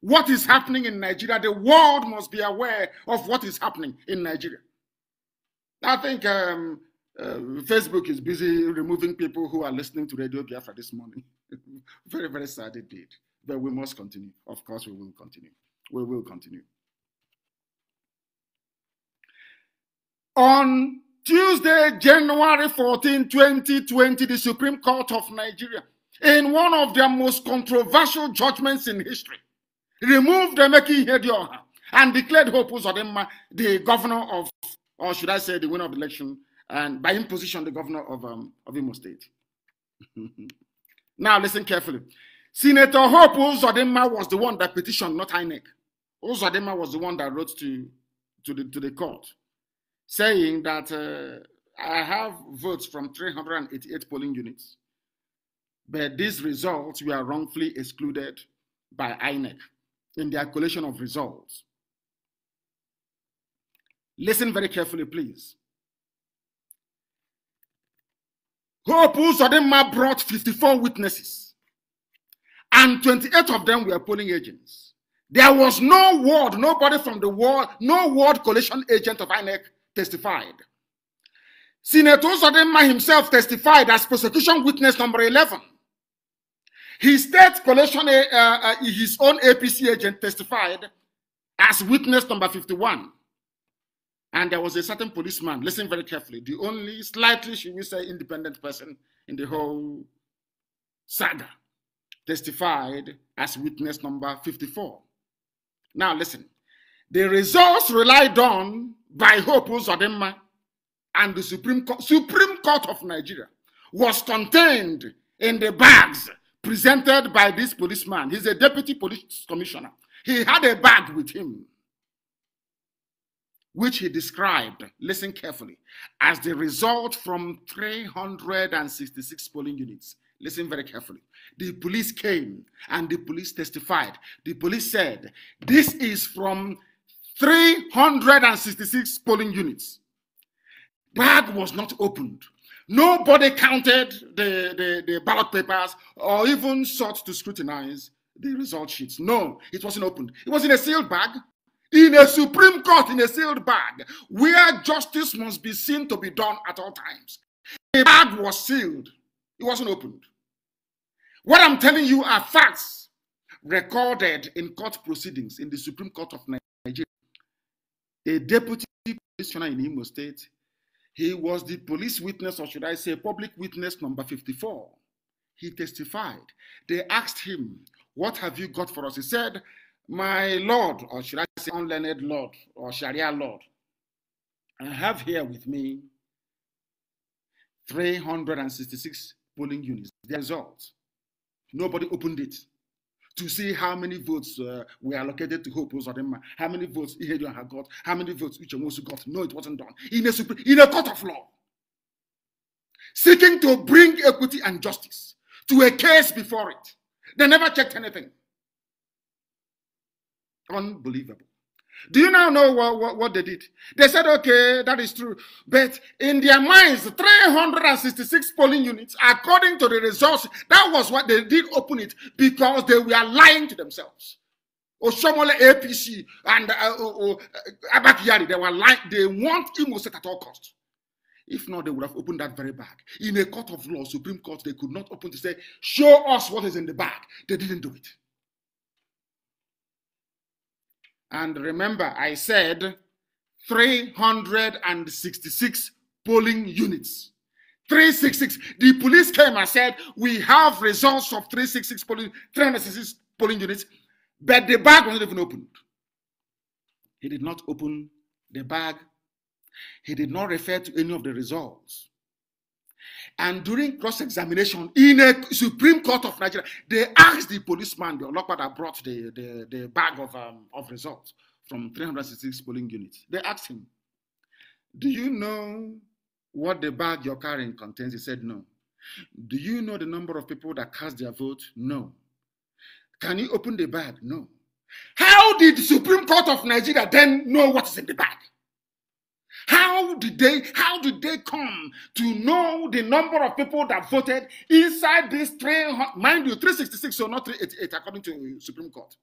What is happening in Nigeria, the world must be aware of what is happening in Nigeria. I think um, uh, Facebook is busy removing people who are listening to Radio Biafra this morning. (laughs) very, very sad indeed. But we must continue. Of course, we will continue. We will continue. On Tuesday, January 14, 2020, the Supreme Court of Nigeria, in one of their most controversial judgments in history, removed Emeki Hedioha and declared Hope Uzodinma the governor of, or should I say, the winner of the election, and by imposition, the governor of, um, of Imo State. (laughs) now, listen carefully. Senator Hope Uzodinma was the one that petitioned, not INEC. Uzodinma was the one that wrote to, to, the, to the court saying that uh, I have votes from 388 polling units, but these results were wrongfully excluded by INEC in their collation of results. Listen very carefully, please. Hope Uzodinma brought 54 witnesses and 28 of them were polling agents. There was no word, nobody from the world, no word coalition agent of INEC testified. Senator Zodema himself testified as prosecution witness number 11. His state coalition, uh, eh, uh, eh, eh, his own APC agent testified as witness number 51. And there was a certain policeman, listen very carefully, the only slightly, should we say, independent person in the whole saga testified as witness number 54. Now listen, the results relied on by Hopu Zodema and the Supreme, Co- Supreme Court of Nigeria was contained in the bags presented by this policeman. He's a deputy police commissioner. He had a bag with him, which he described, listen carefully, as the result from 366 polling units Listen very carefully. The police came and the police testified. The police said, This is from 366 polling units. Bag was not opened. Nobody counted the, the, the ballot papers or even sought to scrutinize the result sheets. No, it wasn't opened. It was in a sealed bag in a Supreme Court in a sealed bag where justice must be seen to be done at all times. The bag was sealed. It wasn't opened. What I'm telling you are facts recorded in court proceedings in the Supreme Court of Nigeria. A deputy commissioner in Imo State, he was the police witness, or should I say, public witness number 54. He testified. They asked him, What have you got for us? He said, My Lord, or should I say, unlearned Lord, or Sharia Lord, I have here with me 366 polling units, the results. Nobody opened it to see how many votes uh, were allocated to Hope Uzodinma, how many votes Ihedon had got, how many votes Uchemosu got. No, it wasn't done. In a, in a court of law, seeking to bring equity and justice to a case before it. They never checked anything. Unbelievable. Do you now know what, what, what, they did? They said, okay, that is true. But in their minds, 366 polling units, according to the results, that was what they did open it because they were lying to themselves. Oshomole APC and uh, uh, uh, uh Abakiyari, they were lying. They want Imo State at all costs. If not, they would have opened that very bag. In a court of law, Supreme Court, they could not open to say, show us what is in the bag. They didn't do it. And remember, I said 366 polling units. 366. The police came and said, We have results of 366 polling, 366 polling units, but the bag was not even opened. He did not open the bag. He did not refer to any of the results. And during cross examination in a Supreme Court of Nigeria, they asked the policeman, the unlocker that brought the, the, the bag of, um, of results from 366 polling units. They asked him, Do you know what the bag you're carrying contains? He said, No. Do you know the number of people that cast their vote? No. Can you open the bag? No. How did the Supreme Court of Nigeria then know what is in the bag? How did they how did they come to know the number of people that voted inside this train? Mind you, 366 or so not 388, according to Supreme Court.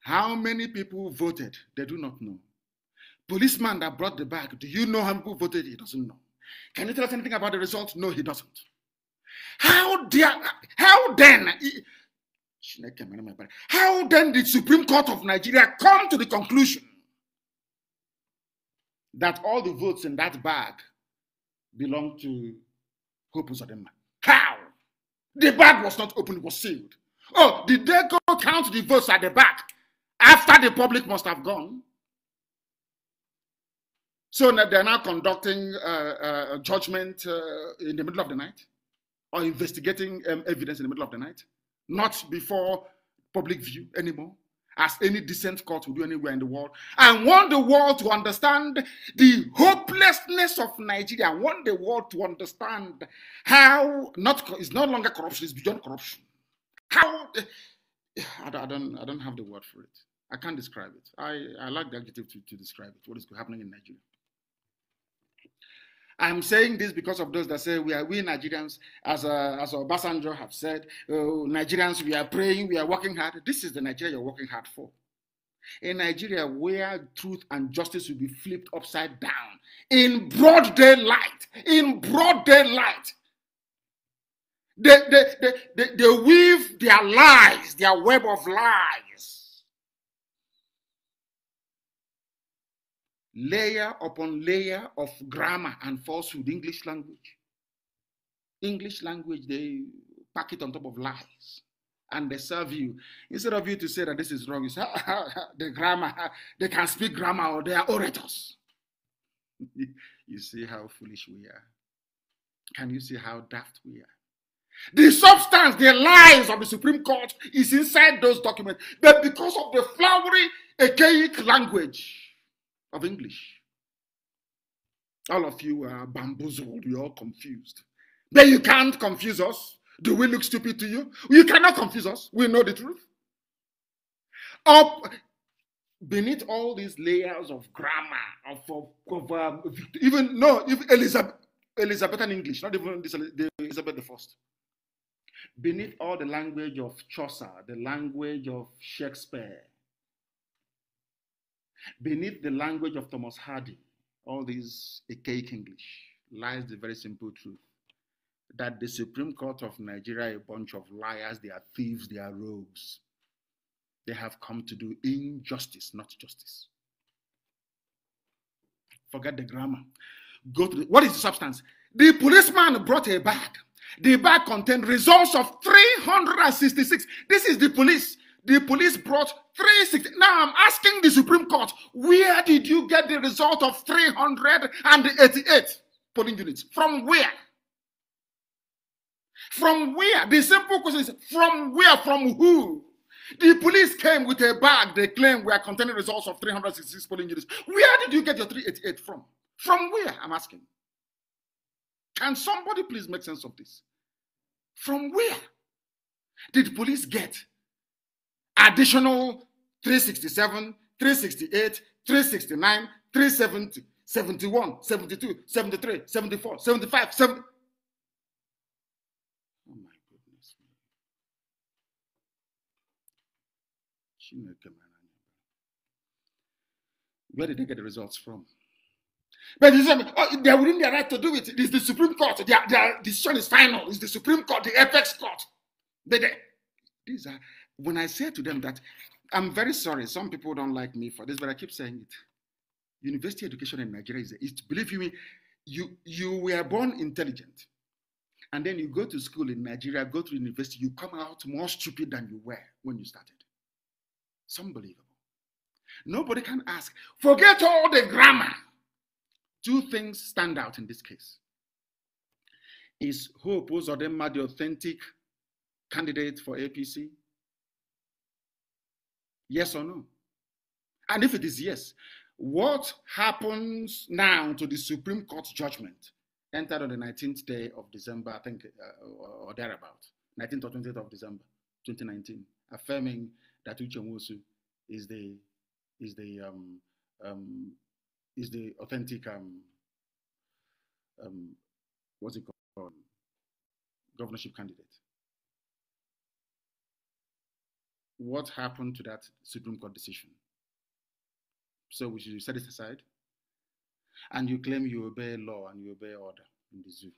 How many people voted? They do not know. Policeman that brought the bag, do you know how many people voted? He doesn't know. Can you tell us anything about the result? No, he doesn't. How dare how then? Oh how then did Supreme Court of Nigeria come to the conclusion that all the votes in that bag belong to Hope Uzodinma. How? The bag was not open, it was sealed. Oh, did they go count the votes at the back after the public must have gone? So they're now conducting uh, uh judgment uh, in the middle of the night or investigating um, evidence in the middle of the night, not before public view anymore as any decent court would do anywhere in the world. I want the world to understand the hopelessness of Nigeria. I want the world to understand how not it's no longer corruption; it's beyond corruption. How I don't, I don't, have the word for it. I can't describe it. I, I lack like the adjective to, to describe it. What is happening in Nigeria? I'm saying this because of those that say we are we Nigerians, as uh, as Obasanjo have said, uh, Nigerians we are praying, we are working hard. This is the Nigeria you're working hard for. A Nigeria where truth and justice will be flipped upside down in broad daylight, in broad daylight. They, they, they, they, they weave their lies, their web of lies layer upon layer of grammar and falsehood, English language. English language, they pack it on top of lies and they serve you. Instead of you to say that this is wrong, you say, ah, ah, ah, the grammar, they can speak grammar or they are orators. (laughs) you see how foolish we are. Can you see how daft we are? The substance, the lies of the Supreme Court is inside those documents, but because of the flowery, archaic language, of English. All of you are bamboozled, you're all confused. But you can't confuse us. Do we look stupid to you? You cannot confuse us. We know the truth. Up beneath all these layers of grammar, of, of, of um, even no, even Elizabeth, Elizabethan English, not even this, Elizabeth the First. Beneath all the language of Chaucer, the language of Shakespeare, Beneath the language of Thomas Hardy, all this archaic English, lies the very simple truth that the Supreme Court of Nigeria, a bunch of liars, they are thieves, they are rogues. They have come to do injustice, not justice. Forget the grammar. Go to the, what is the substance? The policeman brought a bag. The bag contained results of 366. This is the police. The police brought 360. Now I'm asking the Supreme Court, where did you get the result of 388 polling units? From where? From where? The simple question is from where? From who? The police came with a bag. They claim we are containing results of 366 polling units. Where did you get your 388 from? From where? I'm asking. Can somebody please make sense of this? From where did police get additional 367, 368, 369, 370, 71, 72, 73, 74, 75, 70. Oh my goodness. Where did they get the results from? But you oh, they're within their right to do it. It is the Supreme Court. Their, their decision is final. It's the Supreme Court, the apex court. They, they, these are when I say to them that I'm very sorry, some people don't like me for this, but I keep saying it. University education in Nigeria is, is believe you me, you, you were born intelligent. And then you go to school in Nigeria, go to university, you come out more stupid than you were when you started. It's unbelievable. Nobody can ask, forget all the grammar. Two things stand out in this case. Is who or Uzodema the authentic candidate for APC? Yes or no? And if it is yes, what happens now to the Supreme Court judgment entered on the 19th day of December, I think, uh, or, thereabout, 19th or 20th of December, 2019, affirming that Uchenwosu is the is the um, um, is the authentic um, um, what's it called governorship candidate. what happened to that Supreme Court decision? So we should set it aside. And you claim you obey law and you obey order in the zoo.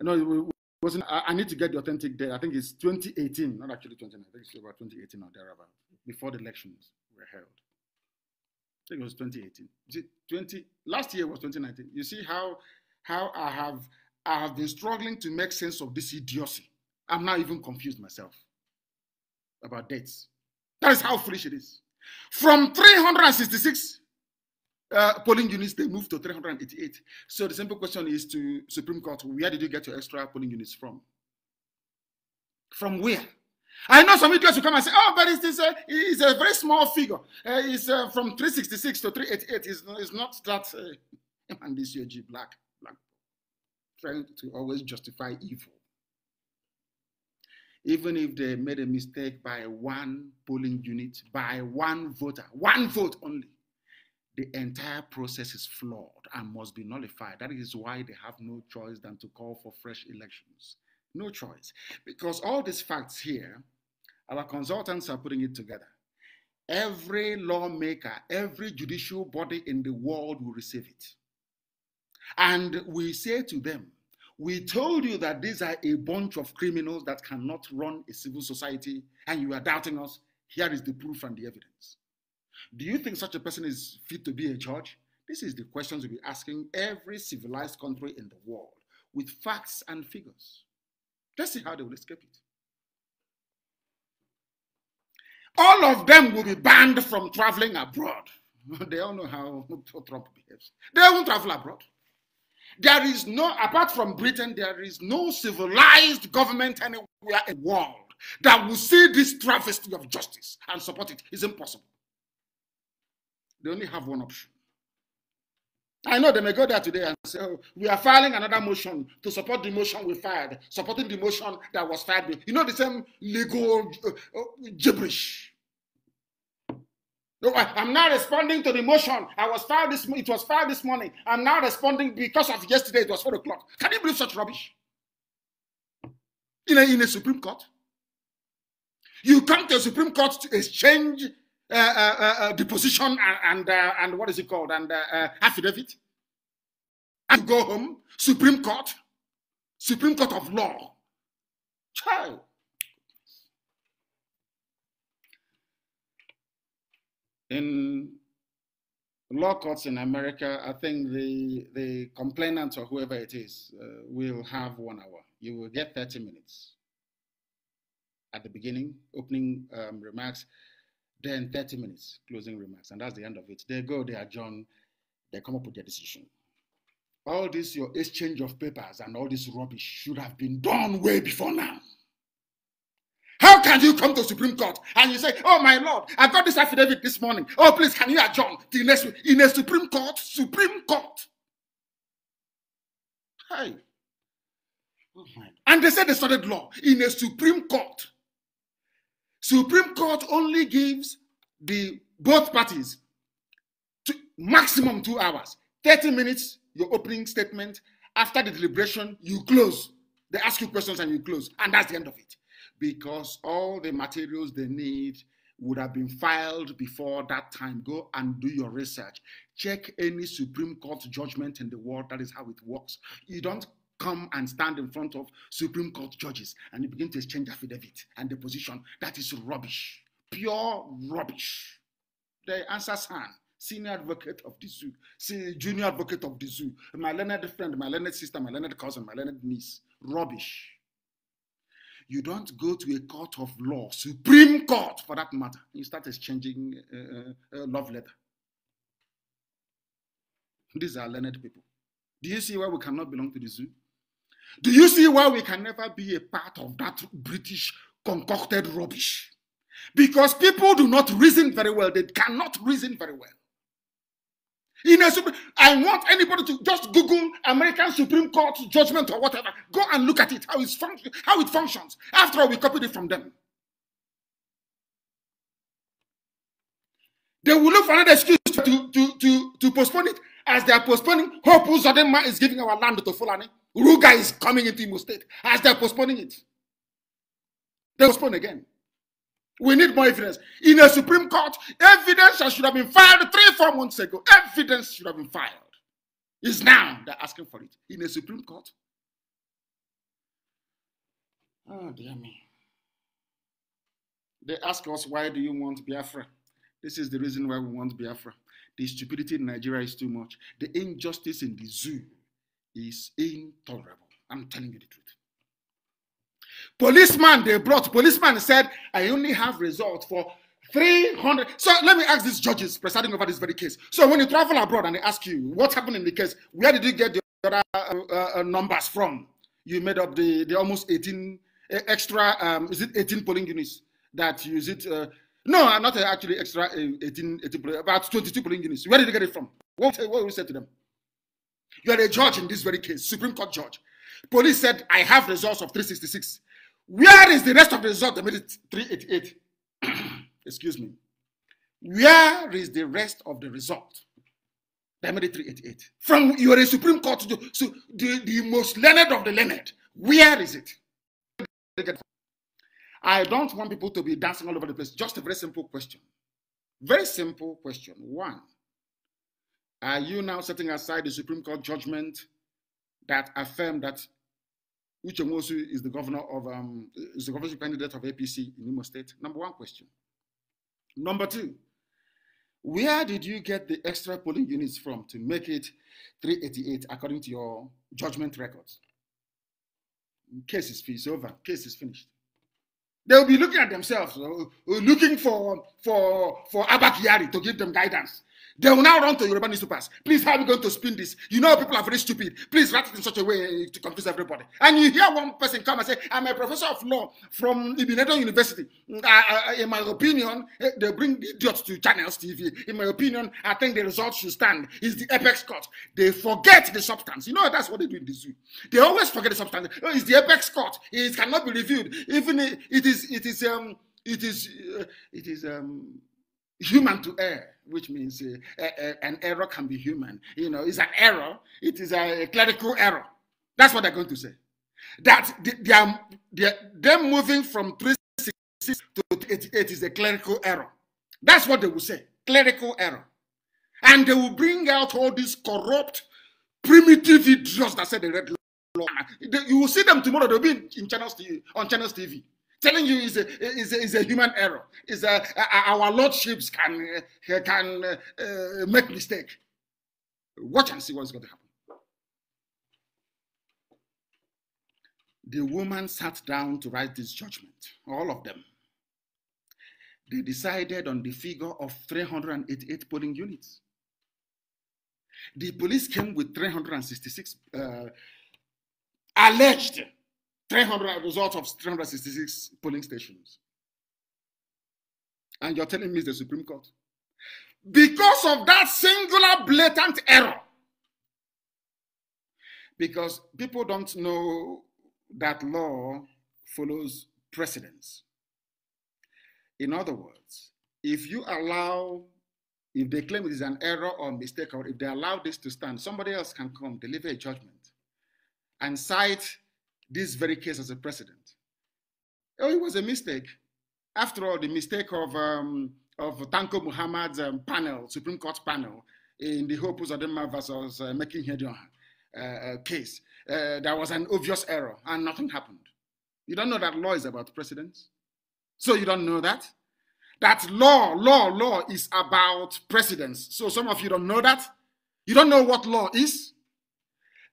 I know wasn't, I, need to get the authentic date. I think it's 2018, not actually 2019. I think it's about 2018 or thereabout, before the elections were held. I think it was 2018. see, 20 last year was 2019. You see how how I have I have been struggling to make sense of this idiocy. I'm now even confused myself about dates. That is how foolish it is. From 366 uh, polling units, they moved to 388. So the simple question is to Supreme Court, where did you get your extra polling units from? From where? I know some idiots will come and say, oh, but it's, it's, a, it's a very small figure. Uh, it's uh, from 366 to 388. It's, it's not that. Uh, (laughs) and this UG black, black, trying to always justify evil even if they made a mistake by one polling unit, by one voter, one vote only, the entire process is flawed and must be nullified. That is why they have no choice than to call for fresh elections. No choice. Because all these facts here, our consultants are putting it together. Every lawmaker, every judicial body in the world will receive it. And we say to them, we told you that these are a bunch of criminals that cannot run a civil society, and you are doubting us. Here is the proof and the evidence. Do you think such a person is fit to be a judge? This is the questions we'll be asking every civilized country in the world with facts and figures. Let's see how they will escape it. All of them will be banned from traveling abroad. (laughs) they all know how (laughs) Trump behaves. They won't travel abroad. There is no, apart from Britain, there is no civilized government anywhere in the world that will see this travesty of justice and support it. It's impossible. They only have one option. I know they may go there today and say, oh, we are filing another motion to support the motion we filed, supporting the motion that was filed. You know, the same legal uh, uh, gibberish. I, am not responding to the motion. I was fired this. It was filed this morning. I'm not responding because of yesterday. It was four o'clock. Can you believe such rubbish? In a, in a Supreme Court, you come to a Supreme Court to exchange uh, uh, uh, deposition uh, and and, uh, and, what is it called and uh, affidavit, and go home. Supreme Court, Supreme Court of Law. Child. in law courts in America, I think the the complainant or whoever it is uh, will have one hour. You will get 30 minutes at the beginning, opening um, remarks, then 30 minutes, closing remarks, and that's the end of it. They go, they adjourn, they come up with their decision. All this, your exchange of papers and all this rubbish should have been done way before now. How can you come to Supreme Court and you say, Oh my Lord, I got this affidavit this morning. Oh, please, can you adjourn the next week? In a Supreme Court, Supreme Court. Hey. Oh, and they said they studied law in a Supreme Court. Supreme Court only gives the both parties to maximum two hours. 30 minutes, your opening statement. After the deliberation, you close. They ask you questions and you close. And that's the end of it because all the materials they need would have been filed before that time. Go and do your research. Check any Supreme Court judgment in the world. That is how it works. You don't come and stand in front of Supreme Court judges and you begin to exchange affidavit and deposition. That is rubbish. Pure rubbish. The answer San, senior advocate of the zoo, junior advocate of the zoo, my learned friend, my learned sister, my learned cousin, my learned niece. Rubbish you don't go to a court of law, Supreme Court for that matter. You start exchanging uh, uh, uh, love letter. These are learned people. Do you see why we cannot belong to the zoo? Do you see why we can never be a part of that British concocted rubbish? Because people do not reason very well. They cannot reason very well. In a, I want anybody to just Google American Supreme Court judgment or whatever. Go and look at it, how, it's how it functions. After all, we copied it from them. They will look for another excuse to, to, to, to postpone it. As they are postponing, Hope Uzodema is giving our land to Fulani. Ruga is coming into Imo State. As they are postponing it, they postpone again. We need more evidence. In a Supreme Court, evidence that should have been filed three, four months ago. Evidence should have been filed. It's now they're asking for it. In a Supreme Court. Oh, dear me. They ask us, why do you want Biafra? This is the reason why we want Biafra. The stupidity in Nigeria is too much. The injustice in the zoo is intolerable. I'm telling you the truth. Policeman they brought, policeman said, I only have results for 300. So let me ask these judges presiding over this very case. So when you travel abroad and they ask you, what happened in the case? Where did you get the other uh, uh, uh numbers from? You made up the, the almost 18 uh, extra, um, is it 18 polling units that use it? Uh, no, I'm not uh, actually extra 18, 18, about 22 polling units. Where did you get it from? What, what will you say to them? You are a judge in this very case, Supreme Court judge. Police said, I have results of 366. Where is the rest of the result that made it 388? (clears throat) Excuse me. Where is the rest of the result that made it 388? From your Supreme Court to the, so the, the most learned of the learned. Where is it? I don't want people to be dancing all over the place. Just a very simple question. Very simple question. One, are you now setting aside the Supreme Court judgment that affirmed that Uche Mosu is the governor of um, is the governorship candidate of APC in Imo State. Number one question. Number two, where did you get the extra polling units from to make it 388 according to your judgment records? Case is finished, over. Case is finished. They'll be looking at themselves, uh, looking for for for Abakiri to give them guidance. They will now run to Yoruba newspapers. Please, how are we going to spin this? You know people are very stupid. Please write it in such a way eh, to confuse everybody. And you hear one person come and say, I'm a professor of law from Ibinedo University. Mm, in my opinion, eh, they bring idiots to channels TV. In my opinion, I think the results should stand. Is the apex court. They forget the substance. You know, that's what they do in the zoo. They always forget the substance. Oh, it's the apex court. It cannot be reviewed. Even it is, it is, um, it is, uh, it is, um, human to err, which means uh, uh, uh, an error can be human. You know, it's an error. It is a, clerical error. That's what they're going to say. That they are, them moving from 366 to 88 is a clerical error. That's what they will say, clerical error. And they will bring out all these corrupt, primitive idiots that said the red law. You will see them tomorrow. They'll be in channels TV, on channels TV telling you is a, is a, is a human error. Is a, our lordships can uh, can uh, uh, make mistake. Watch and see what's going to happen. The woman sat down to write this judgment. All of them. They decided on the figure of 388 polling units. The police came with 366 uh, alleged 300 results of 366 polling stations. And you're telling me it's the Supreme Court. Because of that singular blatant error. Because people don't know that law follows precedence. In other words, if you allow, if they claim it is an error or mistake, or if they allow this to stand, somebody else can come, deliver a judgment, and cite this very case as a precedent. Oh, it was a mistake. After all, the mistake of, um, of Tanko Muhammad's um, panel, Supreme Court panel, in the Hope Uzodema versus uh, Making Hedioha uh, uh, case, uh, there was an obvious error and nothing happened. You don't know that law is about precedents? So you don't know that? That law, law, law is about precedents. So some of you don't know that? You don't know what law is?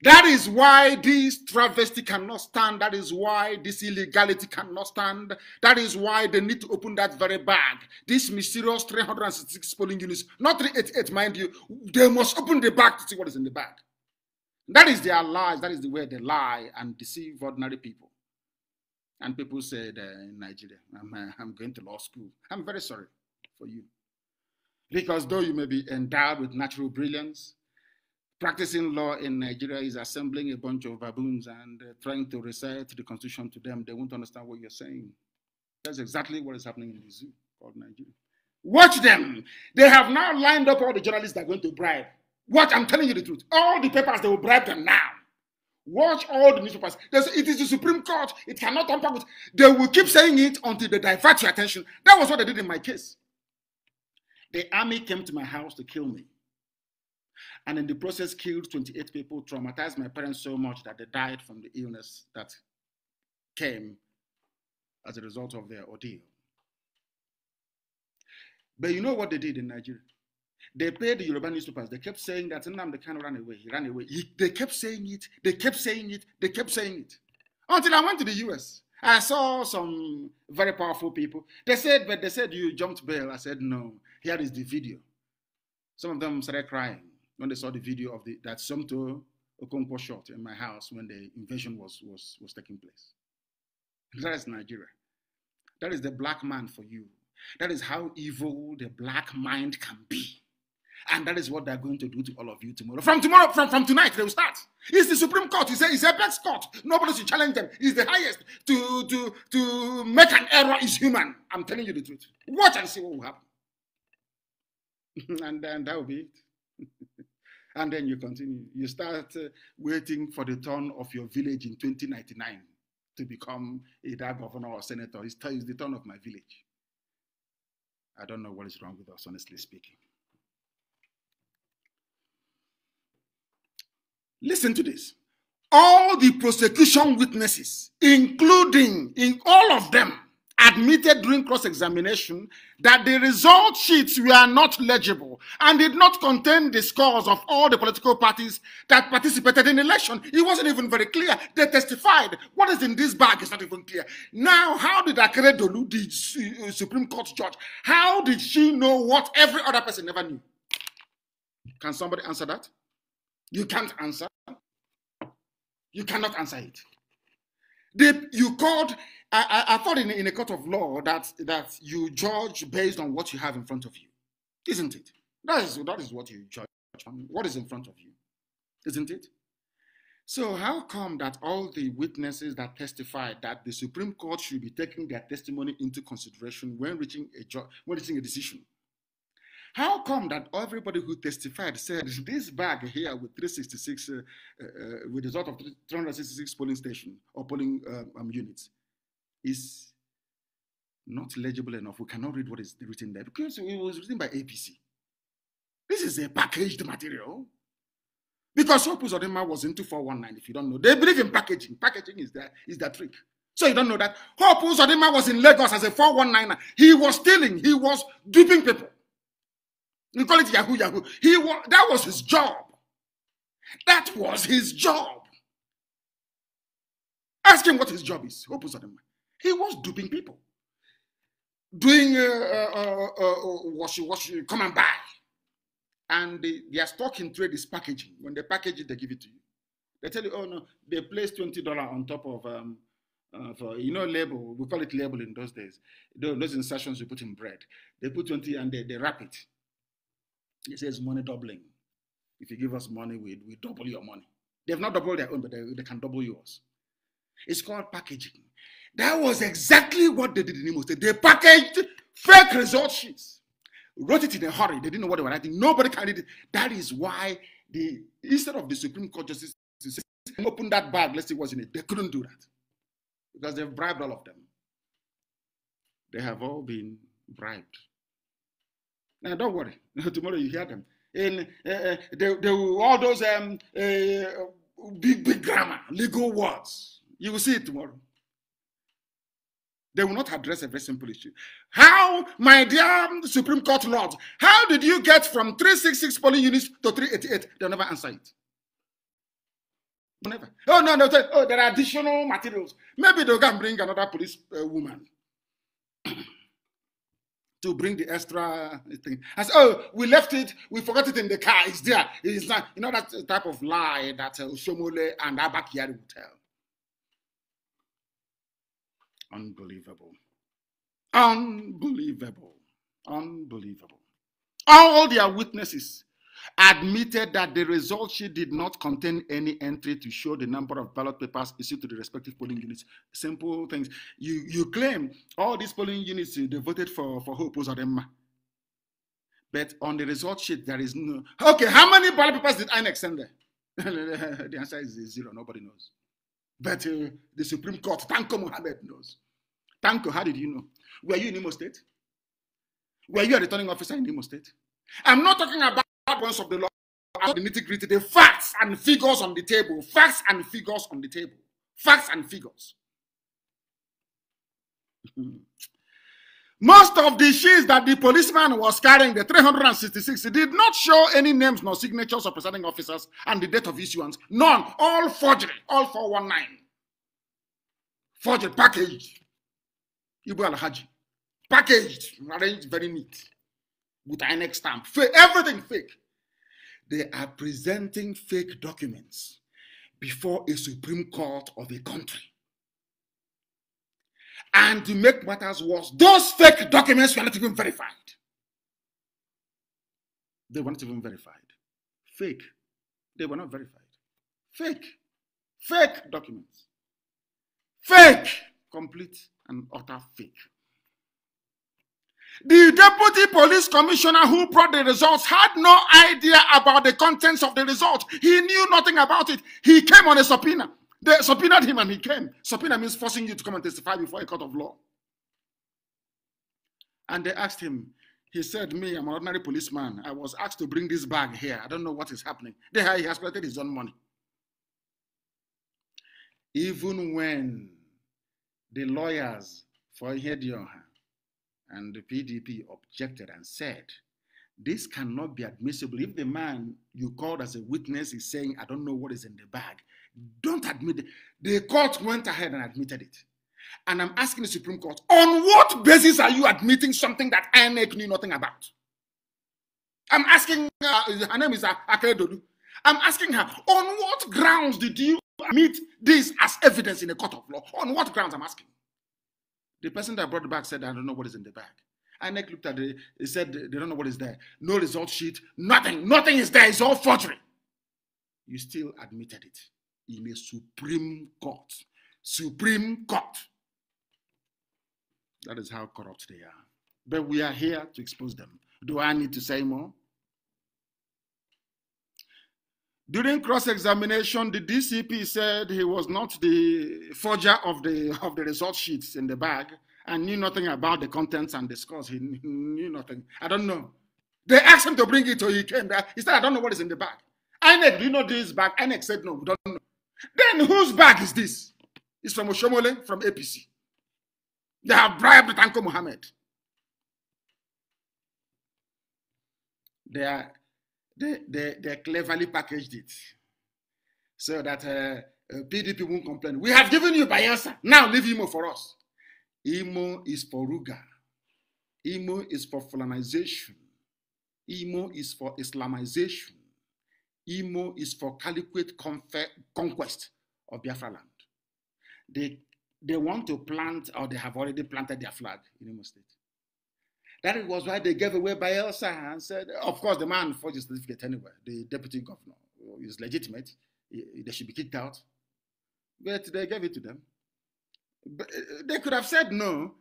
That is why this travesty cannot stand. That is why this illegality cannot stand. That is why they need to open that very bag. This mysterious 366 polling units, not 388, mind you, they must open the bag to see what is in the bag. That is their lies. That is the way they lie and deceive ordinary people. And people said uh, in Nigeria, I'm, uh, I'm going to law school. I'm very sorry for you. Because though you may be endowed with natural brilliance, practicing law in Nigeria is assembling a bunch of baboons and uh, trying to recite the constitution to them. They won't understand what you're saying. That's exactly what is happening in the zoo called Nigeria. Watch them. They have now lined up all the journalists that are going to bribe. Watch, I'm telling you the truth. All the papers, they will bribe them now. Watch all the newspapers. There's, it is the Supreme Court. It cannot tamper with. They will keep saying it until they divert your attention. That was what they did in my case. The army came to my house to kill me and in the process killed 28 people, traumatized my parents so much that they died from the illness that came as a result of their ordeal. But you know what they did in Nigeria? They paid the Yoruba newspapers. They kept saying that Nnamdi Kanu run away. He ran away. He, they kept saying it. They kept saying it. They kept saying it. Until I went to the US. I saw some very powerful people. They said, but they said you jumped bail. I said, no. Here is the video. Some of them started crying when they saw the video of the, that Sumto Okonkwo shot in my house when the invasion was, was, was taking place. That is Nigeria. That is the black man for you. That is how evil the black mind can be. And that is what they're going to do to all of you tomorrow. From tomorrow, from, from tonight, they will start. It's the Supreme Court. You say it's a best court. Nobody should challenge them. It's the highest. To, to, to make an error is human. I'm telling you the truth. Watch and see what will happen. (laughs) and then that will be it and then you continue. You start uh, waiting for the turn of your village in 2099 to become either governor or senator. It's, it's the turn of my village. I don't know what is wrong with us, honestly speaking. Listen to this. All the prosecution witnesses, including in all of them, admitted during cross examination that the result sheets were not legible and did not contain the scores of all the political parties that participated in the election. It wasn't even very clear. They testified. What is in this bag is not even clear. Now, how did Akere Dolu, the uh, Supreme Court judge, how did she know what every other person never knew? Can somebody answer that? You can't answer. You cannot answer it. They, you called, I, I, I thought in, in a court of law that, that you judge based on what you have in front of you, isn't it? That is, that is what you judge on, what is in front of you, isn't it? So, how come that all the witnesses that testified that the Supreme Court should be taking their testimony into consideration when reaching a, ju- when reaching a decision? How come that everybody who testified said this bag here with 366, uh, uh, uh, with the result of 366 polling station or polling um, um, units is not legible enough? We cannot read what is written there because it was written by APC. This is a packaged material. Because Opus Odema was into 419, if you don't know. They believe in packaging. Packaging is their, is their trick. So you don't know that. Opus Odema was in Lagos as a 419. He was stealing. He was duping people. You call it Yahoo Yahoo. He wa- that was his job. That was his job. Ask him what his job is. He was duping people, doing uh, uh, uh, wash, uh, wash, come and buy. And they, their stock in trade is packaging. When they package it, they give it to you. They tell you, oh no, they place twenty dollar on top of um, uh, for you know label. We call it label in those days. Those, those insertions you put in bread. They put twenty and they, they wrap it. He says money doubling. If you give us money, we, we double your money. They've not doubled their own, but they, they can double yours. It's called packaging. That was exactly what they did in Imo State. They packaged fake result sheets, wrote it in a hurry. They didn't know what they were writing. Nobody can read it. That is why the instead of the Supreme Court justice open that bag, let's see what's in it. They couldn't do that because they've bribed all of them. They have all been bribed. Now, don't worry. (laughs) Tomorrow you hear them. and uh, uh, they, they will, all those um, uh, big, big grammar, legal words. You will see it tomorrow. They will not address a very simple issue. How, my dear Supreme Court Lord, how did you get from 366 polling units to 388? They'll never answer it. Never. Oh, no, no. Oh, there are additional materials. Maybe they'll go and bring another police uh, woman. (clears throat) to bring the extra thing. I said, oh, we left it, we forgot it in the car. It's there. It's not, you know, that type of lie that uh, and Abakiari would tell. Unbelievable. Unbelievable. Unbelievable. All their witnesses admitted that the result sheet did not contain any entry to show the number of ballot papers issued to the respective polling units. Simple things. You you claim all these polling units eh, they voted for for Hope opposed But on the result sheet, there is no okay. How many ballot papers did INEC send there? (laughs) the answer is zero. Nobody knows. But uh, the Supreme Court, Tanko Mohammed knows. Tanko, how did you know? Were you in Imo State? Were you a returning officer in Imo State? I'm not talking about of the law the nitty gritty, the facts and figures on the table, facts and figures on the table, facts and figures. (laughs) Most of the sheets that the policeman was carrying, the 366, did not show any names nor signatures of presiding officers and the date of issuance. None. All forgery. All 419. Forgery. Packaged. Ibu al-Haji. Packaged. Arranged very neat. With an stamp. Fake. Everything fake. they are presenting fake documents before a Supreme Court of a country. And to make matters worse, those fake documents were not even verified. They were not even verified. Fake. They were not verified. Fake. Fake documents. Fake. Complete and utter fake. The deputy police commissioner who brought the results had no idea about the contents of the results. He knew nothing about it. He came on a subpoena. They subpoenaed him and he came. Subpoena means forcing you to come and testify before a court of law. And they asked him, he said, Me, I'm an ordinary policeman. I was asked to bring this bag here. I don't know what is happening. There he has collected his own money. Even when the lawyers for Hedionha and the PDP objected and said, this cannot be admissible. If the man you called as a witness is saying, I don't know what is in the bag, don't admit it. The court went ahead and admitted it. And I'm asking the Supreme Court, on what basis are you admitting something that INEC knew nothing about? I'm asking, uh, her name is Akedodu. I'm asking her, on what grounds did you admit this as evidence in a court of law? On what grounds I'm asking? The person that brought the bag said, I don't know what is in the bag. INEC looked at it, he said, they don't know what is there. No result sheet, nothing, nothing is there, it's all forgery. You still admitted it in a Supreme Court. Supreme Court. That is how corrupt they are. But we are here to expose them. Do I need to say more? During cross-examination, the DCP said he was not the forger of the of the result sheets in the bag and knew nothing about the contents and the scores. He knew nothing. I don't know. They asked him to bring it, so he came back. He said, "I don't know what is in the bag." INEC, do you know this bag? INEC said, "No, we don't know." Then whose bag is this? It's from Oshomole, from APC. They have bribed Tanko Mohammed. They are they, they, they cleverly packaged it so that uh, PDP uh, won't complain. We have given you Bayelsa. Now leave Imo for us. Imo is for Ruga. Imo is for Fulanization. Imo is for Islamization. Imo is for caliquate conquest of Biafra land. They, they want to plant, or they have already planted their flag in Imo State. That was why they gave away by Elsa and said, uh, of course, the man forged his certificate anyway, the deputy governor. is legitimate. They should be kicked out. But they gave it to them. But uh, they could have said no.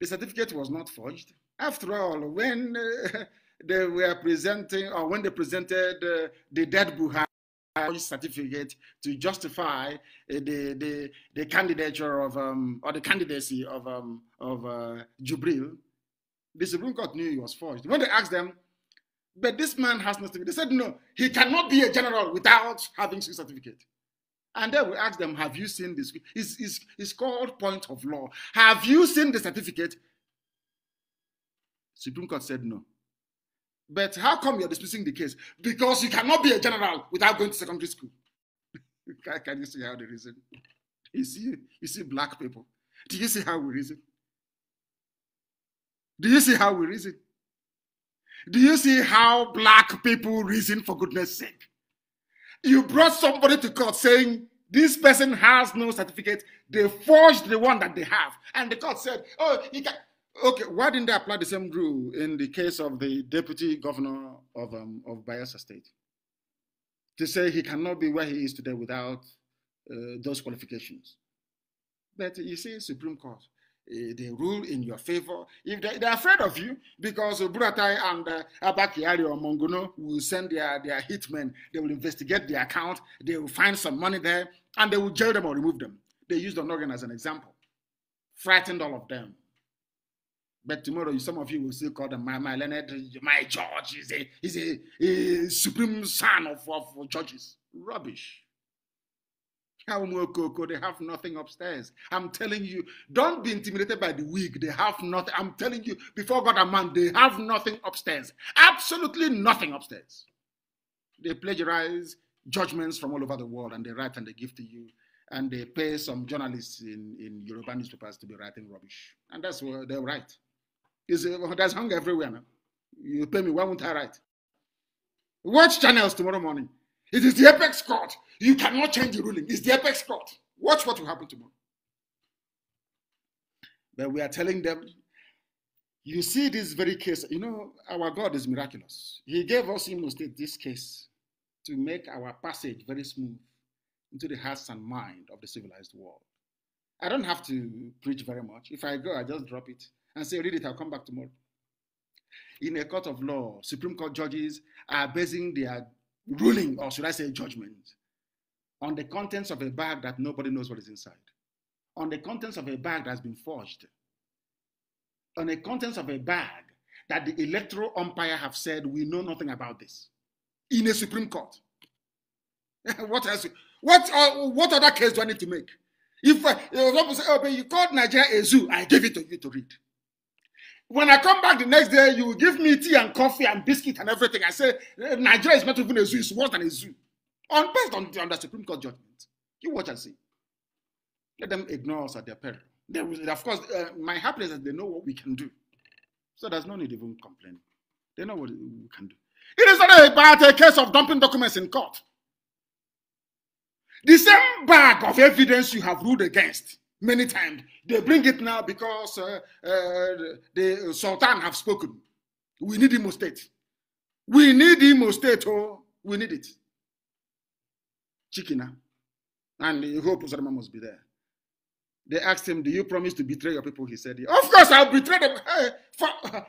The certificate was not forged. After all, when uh, (laughs) they were presenting, or when they presented uh, the dead Buhari, certificate to justify uh, the, the the candidature of um, or the candidacy of um, of uh, Jubril the Supreme Court knew he was forged. When they asked them, but this man has no certificate, they said, no, he cannot be a general without having a certificate. And then we asked them, have you seen this? It's, it's, it's called point of law. Have you seen the certificate? Supreme Court said no. But how come you're dismissing the case? Because you cannot be a general without going to secondary school. (laughs) can, can you see how they reason? You see, you see black people. Do you see how we reason? Do you see how we reason? Do you see how black people reason for goodness sake? You brought somebody to court saying, this person has no certificate. They forged the one that they have. And the court said, oh, can. Okay, why didn't they apply the same rule in the case of the deputy governor of, um, of Bayelsa State? To say he cannot be where he is today without uh, those qualifications. But you see, Supreme Court, Eh, they rule in your favor. If they, are afraid of you, because Buratai and uh, Abakiari or Monguno will send their, their hitmen, they will investigate the account, they will find some money there, and they will jail them or remove them. They used Onogan as an example, frightened all of them. But tomorrow, some of you will still call them my, my Leonard, my George, he's a, he's a, a supreme son of, of churches. Rubbish. They have nothing upstairs. I'm telling you, don't be intimidated by the weak. They have nothing. I'm telling you, before God and man, they have nothing upstairs. Absolutely nothing upstairs. They plagiarize judgments from all over the world and they write and they give to you. And they pay some journalists in, in European newspapers to be writing rubbish. And that's what they write. It's, there's hunger everywhere now. You pay me, why won't I write? Watch channels tomorrow morning. It is the apex court. You cannot change the ruling. It's the apex court. Watch what will happen tomorrow. But we are telling them, you see this very case. You know, our God is miraculous. He gave us Imo State this case to make our passage very smooth into the hearts and mind of the civilized world. I don't have to preach very much. If I go, I just drop it and say, read it, I'll come back tomorrow. In a court of law, Supreme Court judges are basing their ruling, or should I say judgment, on the contents of a bag that nobody knows what is inside, on the contents of a bag that's been forged, on the contents of a bag that the electoral umpire have said, we know nothing about this, in a Supreme Court. (laughs) what else? What, uh, what other case do I need to make? If uh, you, say, oh, you called Nigeria a zoo, I gave it to you to read. When I come back the next day, you give me tea and coffee and biscuit and everything. I say, Nigeria is not even a zoo, it's worse than a zoo. On based on, the Supreme Court judgment, you watch and see. Let them ignore us at their peril. They will, of course, uh, my happiness is they know what we can do. So there's no need even complaining. They know what we can do. It is not about a case of dumping documents in court. The same bag of evidence you have ruled against many times, they bring it now because uh, uh, the Sultan have spoken. We need Imo State. We need Imo State, oh, we need it. Chikina. Ah, and the whole Pozorama must be there. They asked him, Do you promise to betray your people? He said, Of course, I'll betray them. For, for,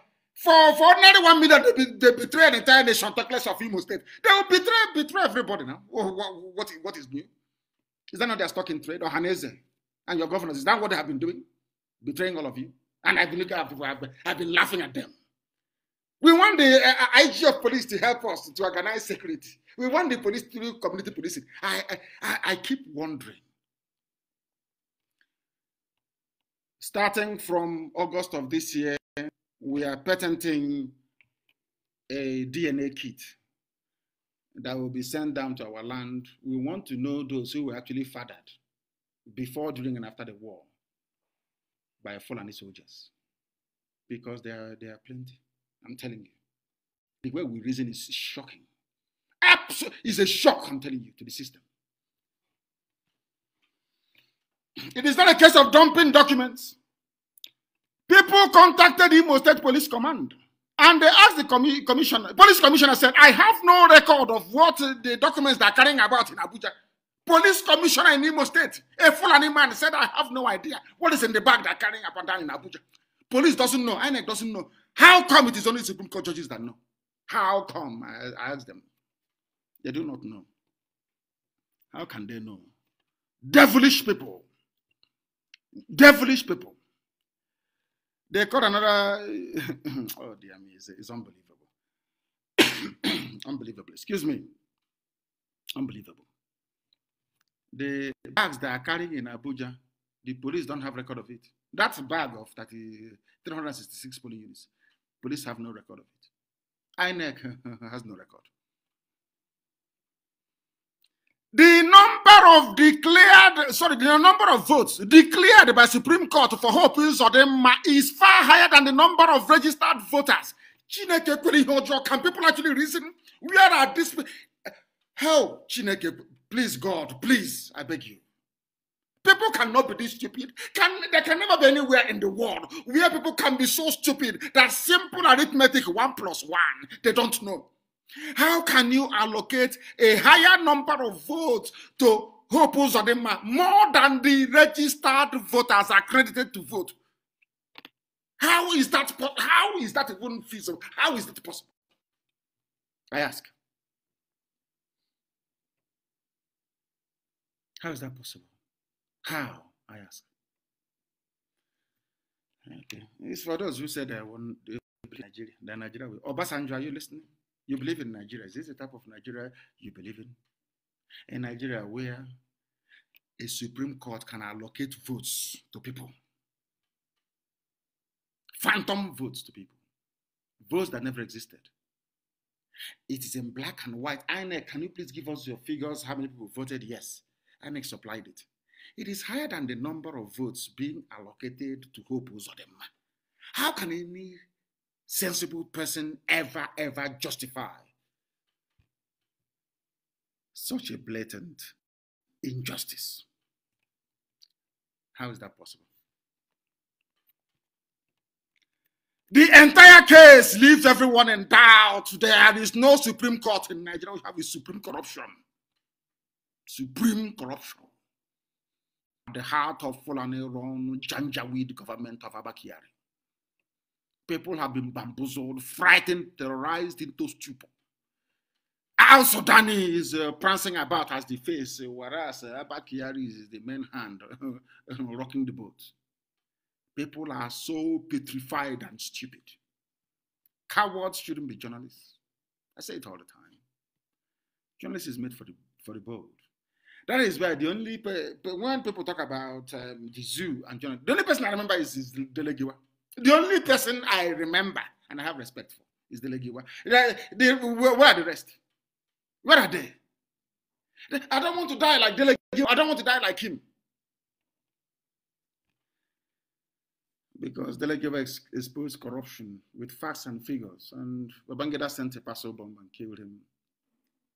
for ordinary one million, they, be, they betray an entire nation, talk less of Imo State. They will betray, betray everybody now. What, what, what is new? Is that not their stock in trade? Or Hanese and your governors, is that what they have been doing? Betraying all of you? And I've been looking at people, I've been, I've been laughing at them. We want the uh, uh IG of police to help us to organize security. We want the police to do community policing. I, I, I keep wondering. Starting from August of this year, we are patenting a DNA kit that will be sent down to our land. We want to know those who were actually fathered before, during, and after the war by Fulani soldiers because there are, there are plenty. I'm telling you. The way we reason is shocking. Absolute, is a shock, I'm telling you, to the system. It is not a case of dumping documents. People contacted Imo State Police Command and they asked the commi commissioner, police commissioner said, I have no record of what the documents they are carrying about in Abuja. Police commissioner in Imo State, a Fulani man, said, I have no idea what is in the bag they are carrying up and down in Abuja. Police doesn't know, INEC doesn't know. How come it is only Supreme Court judges that know? How come? I, I asked them. They do not know. How can they know? Devilish people. Devilish people. They caught another. (coughs) oh, dear me, it's, it's unbelievable. (coughs) unbelievable. Excuse me. Unbelievable. The bags they are carrying in Abuja, the police don't have record of it. That bag of 30, 366 police units, police have no record of it. INEC (laughs) has no record. The number of declared, sorry, the number of votes declared by Supreme Court for Hope Uzodema is far higher than the number of registered voters. can people actually reason? Where are these Hell, Chineke, please, God, please, I beg you. People cannot be this stupid. Can, there can never be anywhere in the world where people can be so stupid that simple arithmetic, one plus one, they don't know. How can you allocate a higher number of votes to Hope Uzodinma more than the registered voters accredited to vote? How is that? How is that even feasible? How is that possible? I ask. How is that possible? How? I ask. Okay. It's for those who said I won't Nigeria. Then Nigeria will. Obasanjo, are you listening? You believe in Nigeria. Is this the type of Nigeria you believe in? In Nigeria, where a Supreme Court can allocate votes to people, phantom votes to people, votes that never existed. It is in black and white. INEC, can you please give us your figures? How many people voted? Yes. INEC supplied it. It is higher than the number of votes being allocated to Hope Uzodema. How can any sensible person ever, ever justify such a blatant injustice? How is that possible? The entire case leaves everyone in doubt. There is no Supreme Court in Nigeria. We have a supreme corruption. Supreme corruption. At the heart of Fulani Ron Janjaweed government of Abakiari people have been bamboozled, frightened, terrorized into stupor. Al Sudani is uh, prancing about as the face, uh, whereas uh, Abba is the main hand (laughs) uh, rocking the boat. People are so petrified and stupid. Cowards shouldn't be journalists. I say it all the time. Journalists is made for the, for the bold. That is why the only pe- when people talk about um, the zoo and journalists, the only person I remember is, is Delegiwa. The only person I remember and I have respect for is the Legiwa. Where are the rest? Where are they? I don't want to die like Dele I don't want to die like him. Because Dele exposed corruption with facts and figures. And Babangida sent a parcel bomb and killed him.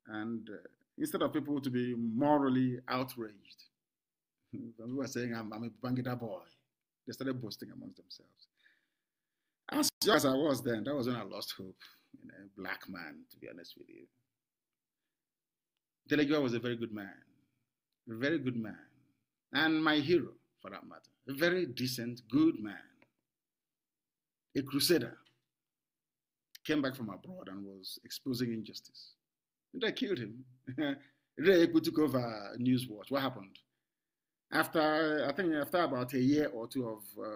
And uh, instead of people to be morally outraged, people (laughs) were saying, I'm, I'm a Babangida boy. They started boasting amongst themselves. As young as I was then, that was when I lost hope. You know, black man, to be honest with you. Delegua was a very good man, a very good man, and my hero, for that matter. A very decent, good man, a crusader. Came back from abroad and was exposing injustice. And they killed him. (laughs) Reeku took over Newswatch. What happened? After, I think, after about a year or two of uh,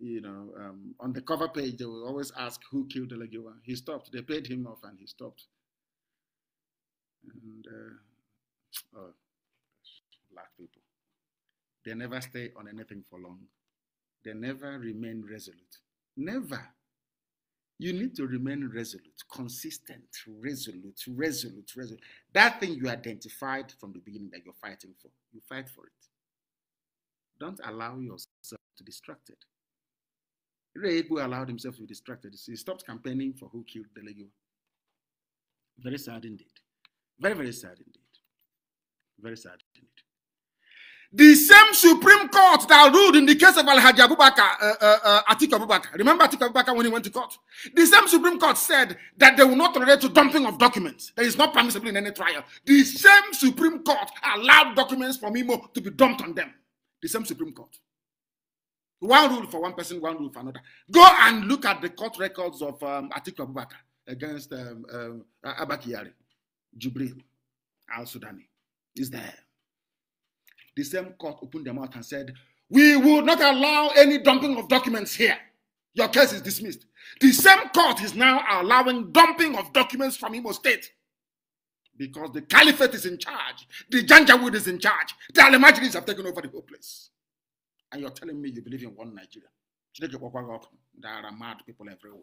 you know, um, on the cover page, they will always ask who killed Elegiwa. He stopped. They paid him off and he stopped. And, uh, oh, black people. They never stay on anything for long. They never remain resolute. Never. You need to remain resolute, consistent, resolute, resolute, resolute. That thing you identified from the beginning that you're fighting for, you fight for it. Don't allow yourself to be distracted. Ray who allowed himself to be distracted. He stopped campaigning for who killed the Very sad indeed. Very, very sad indeed. Very sad indeed. The same Supreme Court that ruled in the case of Al Hajj Abubakar, uh, uh, uh, Atiku Abubakar, remember Atiku Abubakar when he went to court? The same Supreme Court said that they will not tolerate to dumping of documents. That is not permissible in any trial. The same Supreme Court allowed documents from Imo to be dumped on them. The same Supreme Court. One rule for one person, one rule for another. Go and look at the court records of um, Atiku Abubakar against um, um, Abakiyari, Jubril, Al Sudani. Is there. The same court opened their mouth and said, We will not allow any dumping of documents here. Your case is dismissed. The same court is now allowing dumping of documents from Imo State because the caliphate is in charge, the Janjaweed is in charge, the Alimajris have taken over the whole place and you're telling me you believe in one Nigeria. There are mad people everywhere.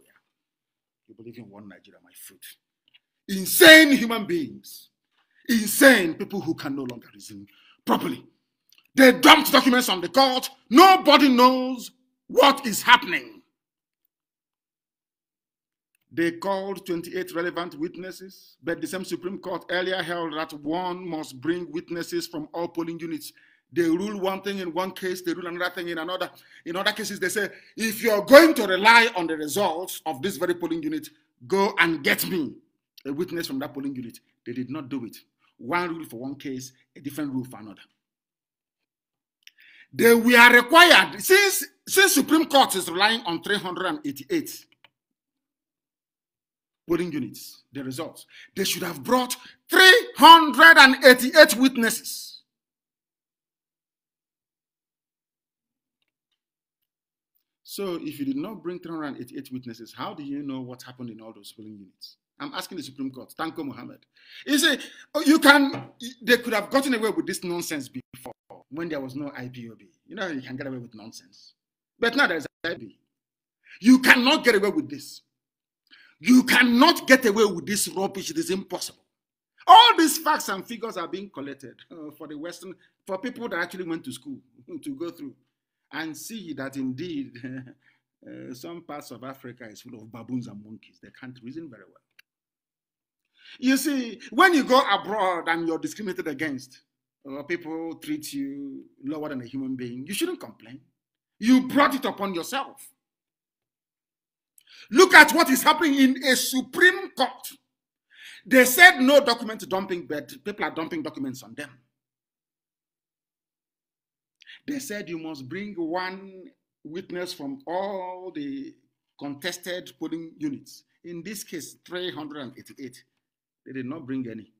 You believe in one Nigeria, my fruit. Insane human beings. Insane people who can no longer reason properly. They dumped documents on the court. Nobody knows what is happening. They called 28 relevant witnesses, but the same Supreme Court earlier held that one must bring witnesses from all polling units they rule one thing in one case, they rule another thing in another. In other cases, they say, if you're going to rely on the results of this very polling unit, go and get me a witness from that polling unit. They did not do it. One rule for one case, a different rule for another. They were required, since, since Supreme Court is relying on 388 polling units, the results, they should have brought 388 witnesses. So if you did not bring 388 witnesses, how do you know what happened in all those polling units? I'm asking the Supreme Court. Thank you, Mohammed. You said, oh, you can, they could have gotten away with this nonsense before when there was no IPOB. You know, you can get away with nonsense. But now there is IPOB. You cannot get away with this. You cannot get away with this rubbish. It is impossible. All these facts and figures are being collected uh, for the Western, for people that actually went to school (laughs) to go through and see that indeed (laughs) uh, some parts of Africa is full of baboons and monkeys. They can't reason very well. You see, when you go abroad and you're discriminated against, or people treat you lower than a human being, you shouldn't complain. You brought it upon yourself. Look at what is happening in a Supreme Court. They said no document dumping, but people are dumping documents on them. They said you must bring one witness from all the contested polling units. In this case, 388. They did not bring any.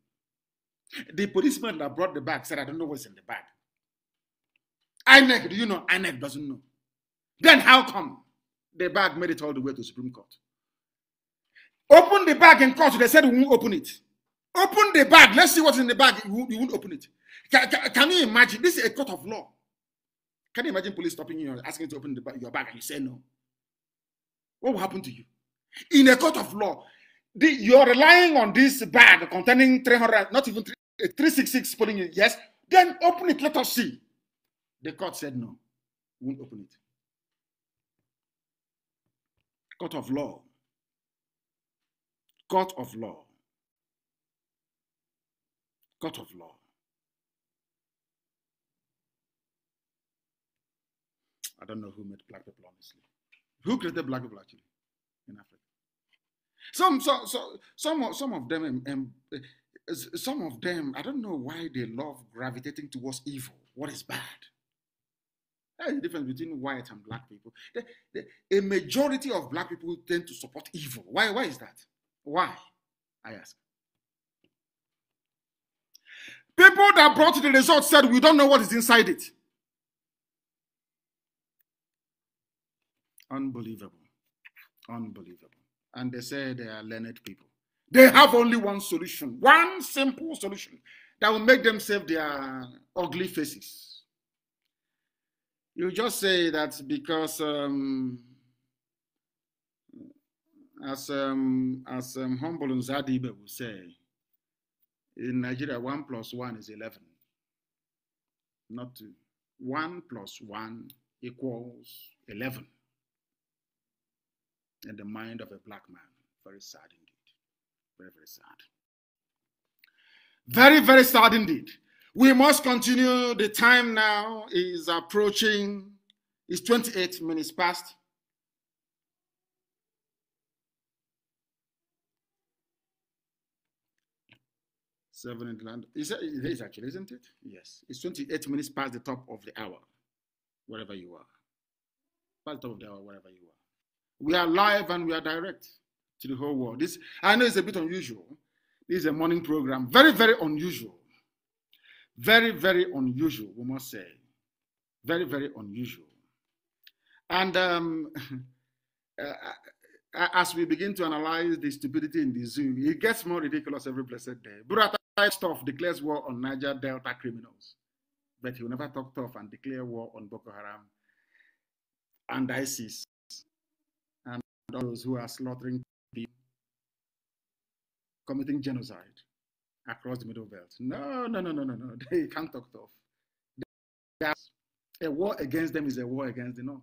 The policeman that brought the bag said, I don't know what's in the bag. INEC, do you know? INEC doesn't know. Then how come the bag made it all the way to Supreme Court? Open the bag in court. They said we won't open it. Open the bag. Let's see what's in the bag. You won't open it. Can, can, can you imagine? This is a court of law. Can you imagine police stopping you and asking you to open the, your bag and you say no? What will happen to you? In a court of law, the, you're relying on this bag containing 300, not even 3, eh, 366 pulling it, yes? Then open it, let us see. The court said no, won't open it. Court of law. Court of law. Court of law. I don't know who made black people, honestly. Who created black people, actually, in Africa? Some, so, so, some, of, some of them, um, um uh, some of them, I don't know why they love gravitating towards evil. What is bad? That's the difference between white and black people. The, the, a majority of black people tend to support evil. Why? Why is that? Why? I ask. People that brought the result said, we don't know what is inside it. Unbelievable. Unbelievable. And they say they are learned people. They have only one solution, one simple solution that will make them save their ugly faces. You just say that because, um, as um, as um, humble and Zadibe will say, in Nigeria, one plus one is eleven, not two. One plus one equals eleven in the mind of a black man. Very sad indeed. Very, very sad. Very, very sad indeed. We must continue. The time now is approaching, it's 28 minutes past. Seven in land. Is it is actually, isn't it? Yes. It's 28 minutes past the top of the hour, wherever you are. Past the top of the hour, wherever you are. We are live and we are direct to the whole world. This I know it's a bit unusual. This is a morning program. Very, very unusual. Very, very unusual, we must say. Very, very unusual. And um, (laughs) uh, uh, uh, as we begin to analyze the stupidity in the zoo, it gets more ridiculous every blessed day. Burata stuff declares war on Niger Delta criminals, but he will never talk tough and declare war on Boko Haram and ISIS those who are slaughtering committing genocide across the Middle Belt. No, no, no, no, no, no. (laughs) They can't talk tough. a war against them is a war against the North.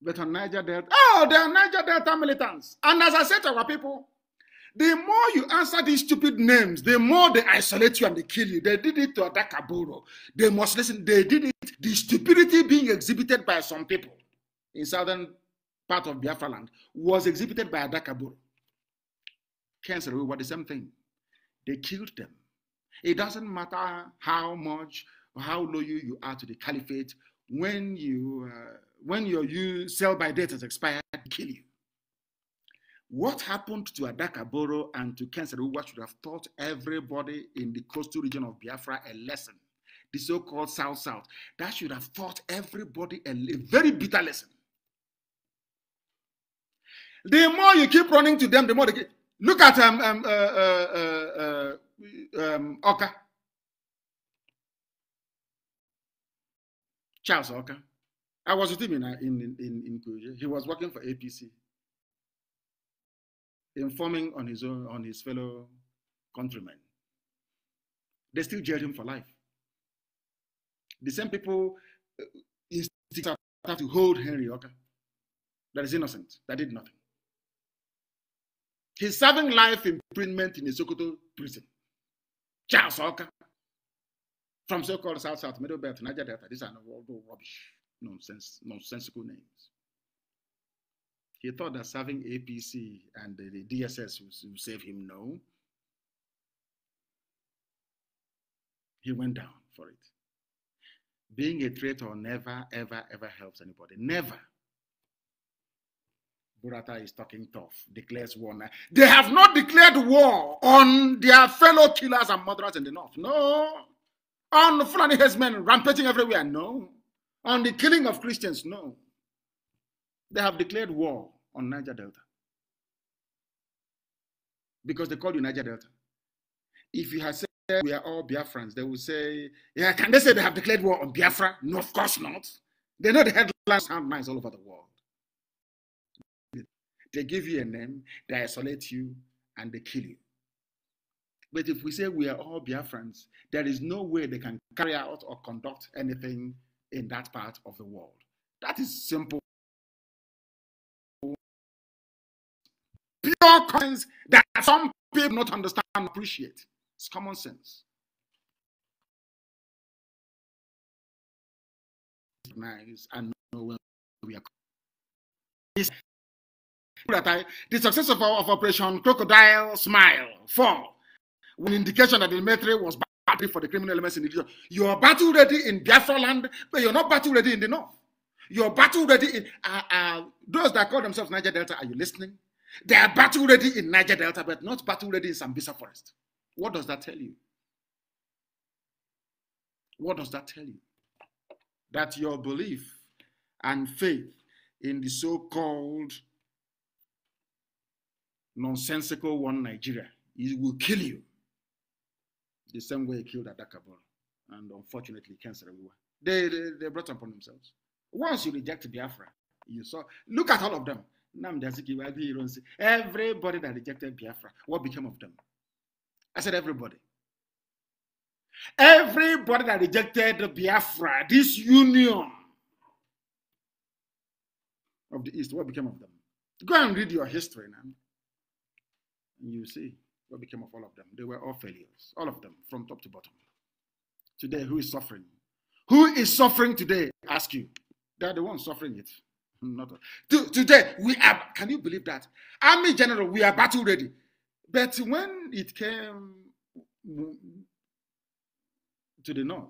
But on Niger Delta, oh, they are Niger Delta militants. And as I said to our people, the more you answer these stupid names, the more they isolate you and they kill you. They did it to attack Aburo. They must listen. They did it. The stupidity being exhibited by some people in southern part of Biafra land, was exhibited by Adakaburu. Cancer, we were the same thing. They killed them. It doesn't matter how much or how loyal you are to the caliphate. When you uh, when your you sell by date has expired, they kill you. What happened to Adakaboro and to Kenseruwa should have taught everybody in the coastal region of Biafra a lesson. The so-called South South. That should have taught everybody a, a very bitter lesson. The more you keep running to them, the more they get. Look at um, um, uh, uh, uh, um, Oka. Charles Oka. I was with him in, in, in, in Kuja. He was working for APC, informing on his own, on his fellow countrymen. They still jailed him for life. The same people uh, have to hold Henry Oka, that is innocent, that did nothing. He's serving life imprisonment in the Sokoto prison. Charles Oka. From so-called South South Middle Belt, Niger Delta. These are all rubbish, nonsense, nonsensical names. He thought that serving APC and the, the DSS would save him. No. He went down for it. Being a traitor never, ever, ever helps anybody. Never. Burata is talking tough, declares war now. They have not declared war on their fellow killers and murderers in the north. No. On Fulani headsmen rampaging everywhere. No. On the killing of Christians. No. They have declared war on Niger Delta. Because they call you Niger Delta. If you had said we are all Biafrans, they would say, yeah, can they say they have declared war on Biafra? No, of course not. They know the headlines sound nice all over the world. They give you a name, they isolate you, and they kill you. But if we say we are all Biafrans, there is no way they can carry out or conduct anything in that part of the world. That is simple. Pure coins that some people not understand appreciate. It's common sense. Recognize and know where we are that I, the success of, of Operation Crocodile Smile 4 was an indication that the military was ready for the criminal elements in the region. You are battle ready in Biafra land, but you're not battle ready in the north. You're battle ready in uh, uh, those that call themselves Niger Delta. Are you listening? They are battle ready in Niger Delta, but not battle ready in Sambisa Forest. What does that tell you? What does that tell you? That your belief and faith in the so called nonsensical one Nigeria. It will kill you. The same way he killed Atakabon, And unfortunately, cancer everywhere. They, they, they brought upon themselves. Once you reject Biafra, you saw, look at all of them. Everybody that rejected Biafra, what became of them? I said, everybody. Everybody that rejected Biafra, this union of the East, what became of them? Go and read your history now you see what became of all of them. They were all failures, all of them, from top to bottom. Today, who is suffering? Who is suffering today? Ask you. They're the ones suffering it. (laughs) Not today, we are. Can you believe that? Army general, we are battle ready. But when it came to the north,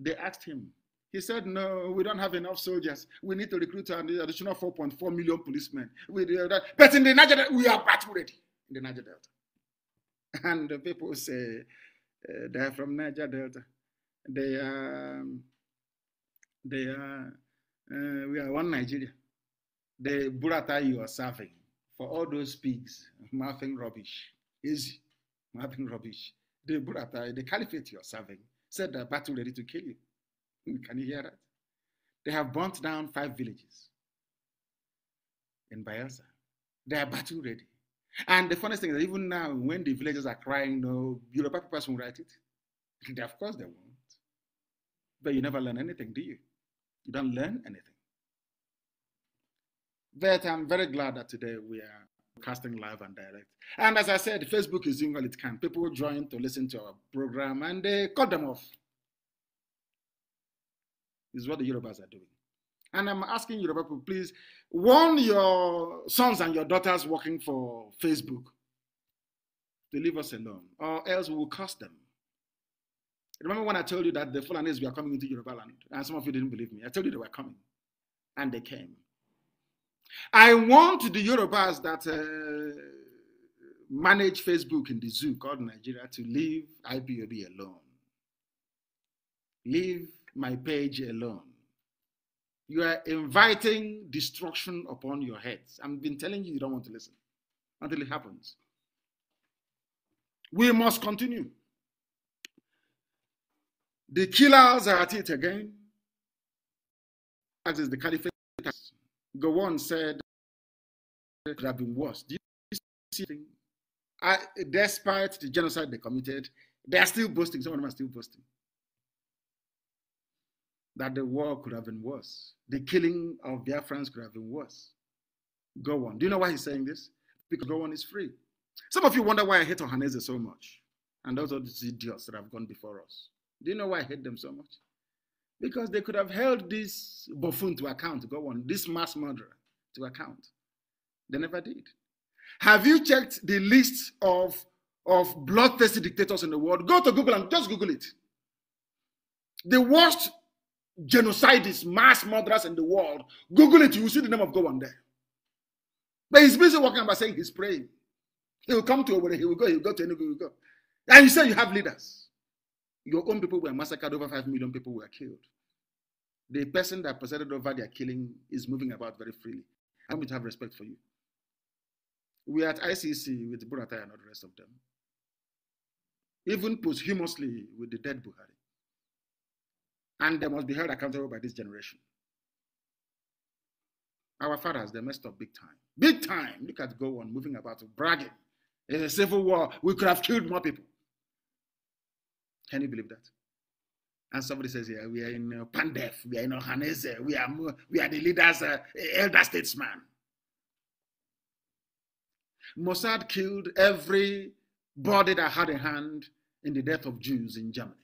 they asked him. He said, No, we don't have enough soldiers. We need to recruit an additional 4.4 million policemen. We, that. But in the Niger, we are battle ready in the Niger Delta. (laughs) And the people say uh, eh, they're from Niger Delta. They are, they are, uh, we are one Nigeria. The burrata you are serving for all those pigs, (laughs) mouthing rubbish, easy, mouthing rubbish. The burrata, the caliphate you are serving, said they're battle ready to kill you. (laughs) Can you hear that? They have burnt down five villages in Bayelsa. They are battle ready. And the funniest thing is even now, when the villagers are crying, no, Yoruba papers won't write it. of course they won't. But you never learn anything, do you? You don't learn anything. But I'm very glad that today we are casting live and direct. And as I said, Facebook is doing all it can. People join to listen to our program and they cut them off. This is what the Europeans are doing. And I'm asking Yoruba people, please warn your sons and your daughters working for Facebook to leave us alone, or else we will curse them. Remember when I told you that the Fulanese were coming into Yoruba land, and some of you didn't believe me. I told you they were coming, and they came. I want the Yorubas that uh, manage Facebook in the zoo called Nigeria to leave IPOB alone. Leave my page alone. You are inviting destruction upon your heads. I've been telling you, you don't want to listen until it happens. We must continue. The killers are at it again. As is the caliphate. one said it could have been worse. Do you see I, despite the genocide they committed, they are still boasting. Some of them are still boasting that the war could have been worse. The killing of their friends could have been worse. Go on. Do you know why he's saying this? Because go on is free. Some of you wonder why I hate Ohaneze so much. And those are the idiots that have gone before us. Do you know why I hate them so much? Because they could have held this buffoon to account, go on, this mass murderer to account. They never did. Have you checked the list of, of bloodthirsty dictators in the world? Go to Google and just Google it. The worst Genocides, mass murderers in the world. Google it, you will see the name of God on there. But he's busy walking about saying he's praying. He will come to Owerri, he will go, he will go to any. he will go. And you say you have leaders. Your own people were massacred, over 5 million people were killed. The person that presided over their killing is moving about very freely. I want you to have respect for you. We are at ICC with Buratai and all the rest of them. Even posthumously with the dead Buhari and they must be held accountable by this generation. Our fathers, they messed up big time. Big time. Look at go on moving about, bragging. It's a civil war. We could have killed more people. Can you believe that? And somebody says, yeah, we are in uh, Pandef, we are in Ohanese, we are, we are the leaders, uh, elder statesman. Mossad killed every body that had a hand in the death of Jews in Germany.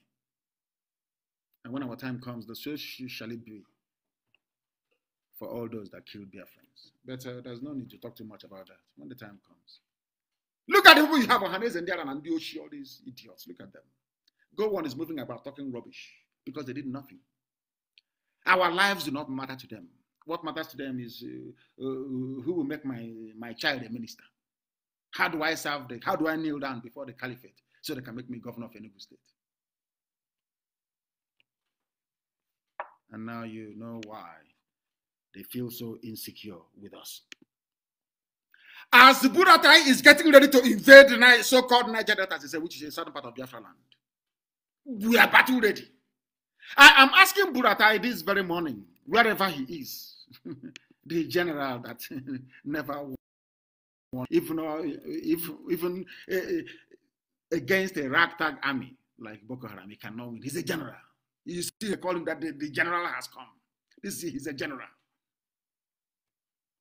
And when our time comes, the so shall it be for all those that killed their friends. But uh, there's no need to talk too much about that when the time comes. Look at the people you have, Ohanes and Diaran and Dioshi, all these idiots. Look at them. Go one is moving about talking rubbish because they did nothing. Our lives do not matter to them. What matters to them is uh, uh, who will make my, my child a minister. How do I serve the, how do I kneel down before the caliphate so they can make me governor of Enugu state? And now you know why they feel so insecure with us. As Buratai is getting ready to invade the so called Niger Delta, as said, which is a southern part of Biafra land, we are battle ready. I am asking Buratai this very morning, wherever he is, (laughs) the general that (laughs) never won, even, if, even uh, against a ragtag army like Boko Haram, he cannot win. He's a general. You still they call him that the, the general has come. This is, he's a general.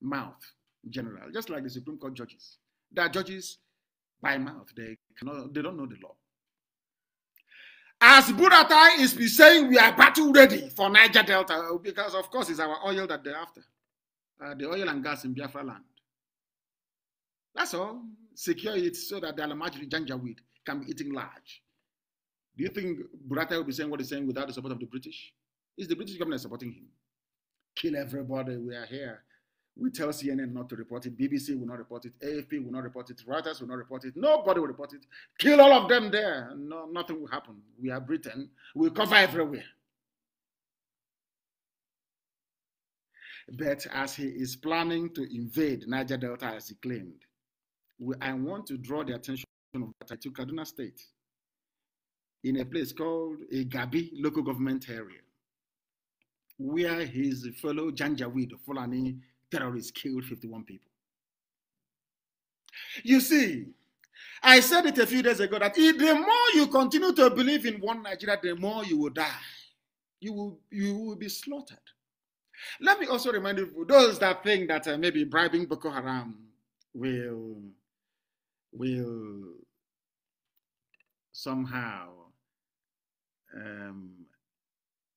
Mouth, general, just like the Supreme Court judges. They are judges by mouth. They cannot. They don't know the law. As Buratai is saying, we are battle ready for Niger Delta because, of course, it's our oil that they're after, uh, the oil and gas in Biafra land. That's all. Secure it so that the Alamajri Janjaweed can be eating large. Do you think Burata will be saying what he's saying without the support of the British? Is the British government supporting him. Kill everybody, we are here. We tell CNN not to report it. BBC will not report it. AFP will not report it. Reuters will not report it. Nobody will report it. Kill all of them there. No, nothing will happen. We are Britain. We cover everywhere. But as he is planning to invade Niger Delta, as he claimed, we, I want to draw the attention of Burata to Kaduna State in a place called a eh, Gabi local government area, where his fellow Janjaweed Fulani terrorists killed 51 people. You see, I said it a few days ago that the more you continue to believe in one Nigeria, the more you will die. You will, you will be slaughtered. Let me also remind you, those that think that uh, maybe bribing Boko Haram will, will somehow um,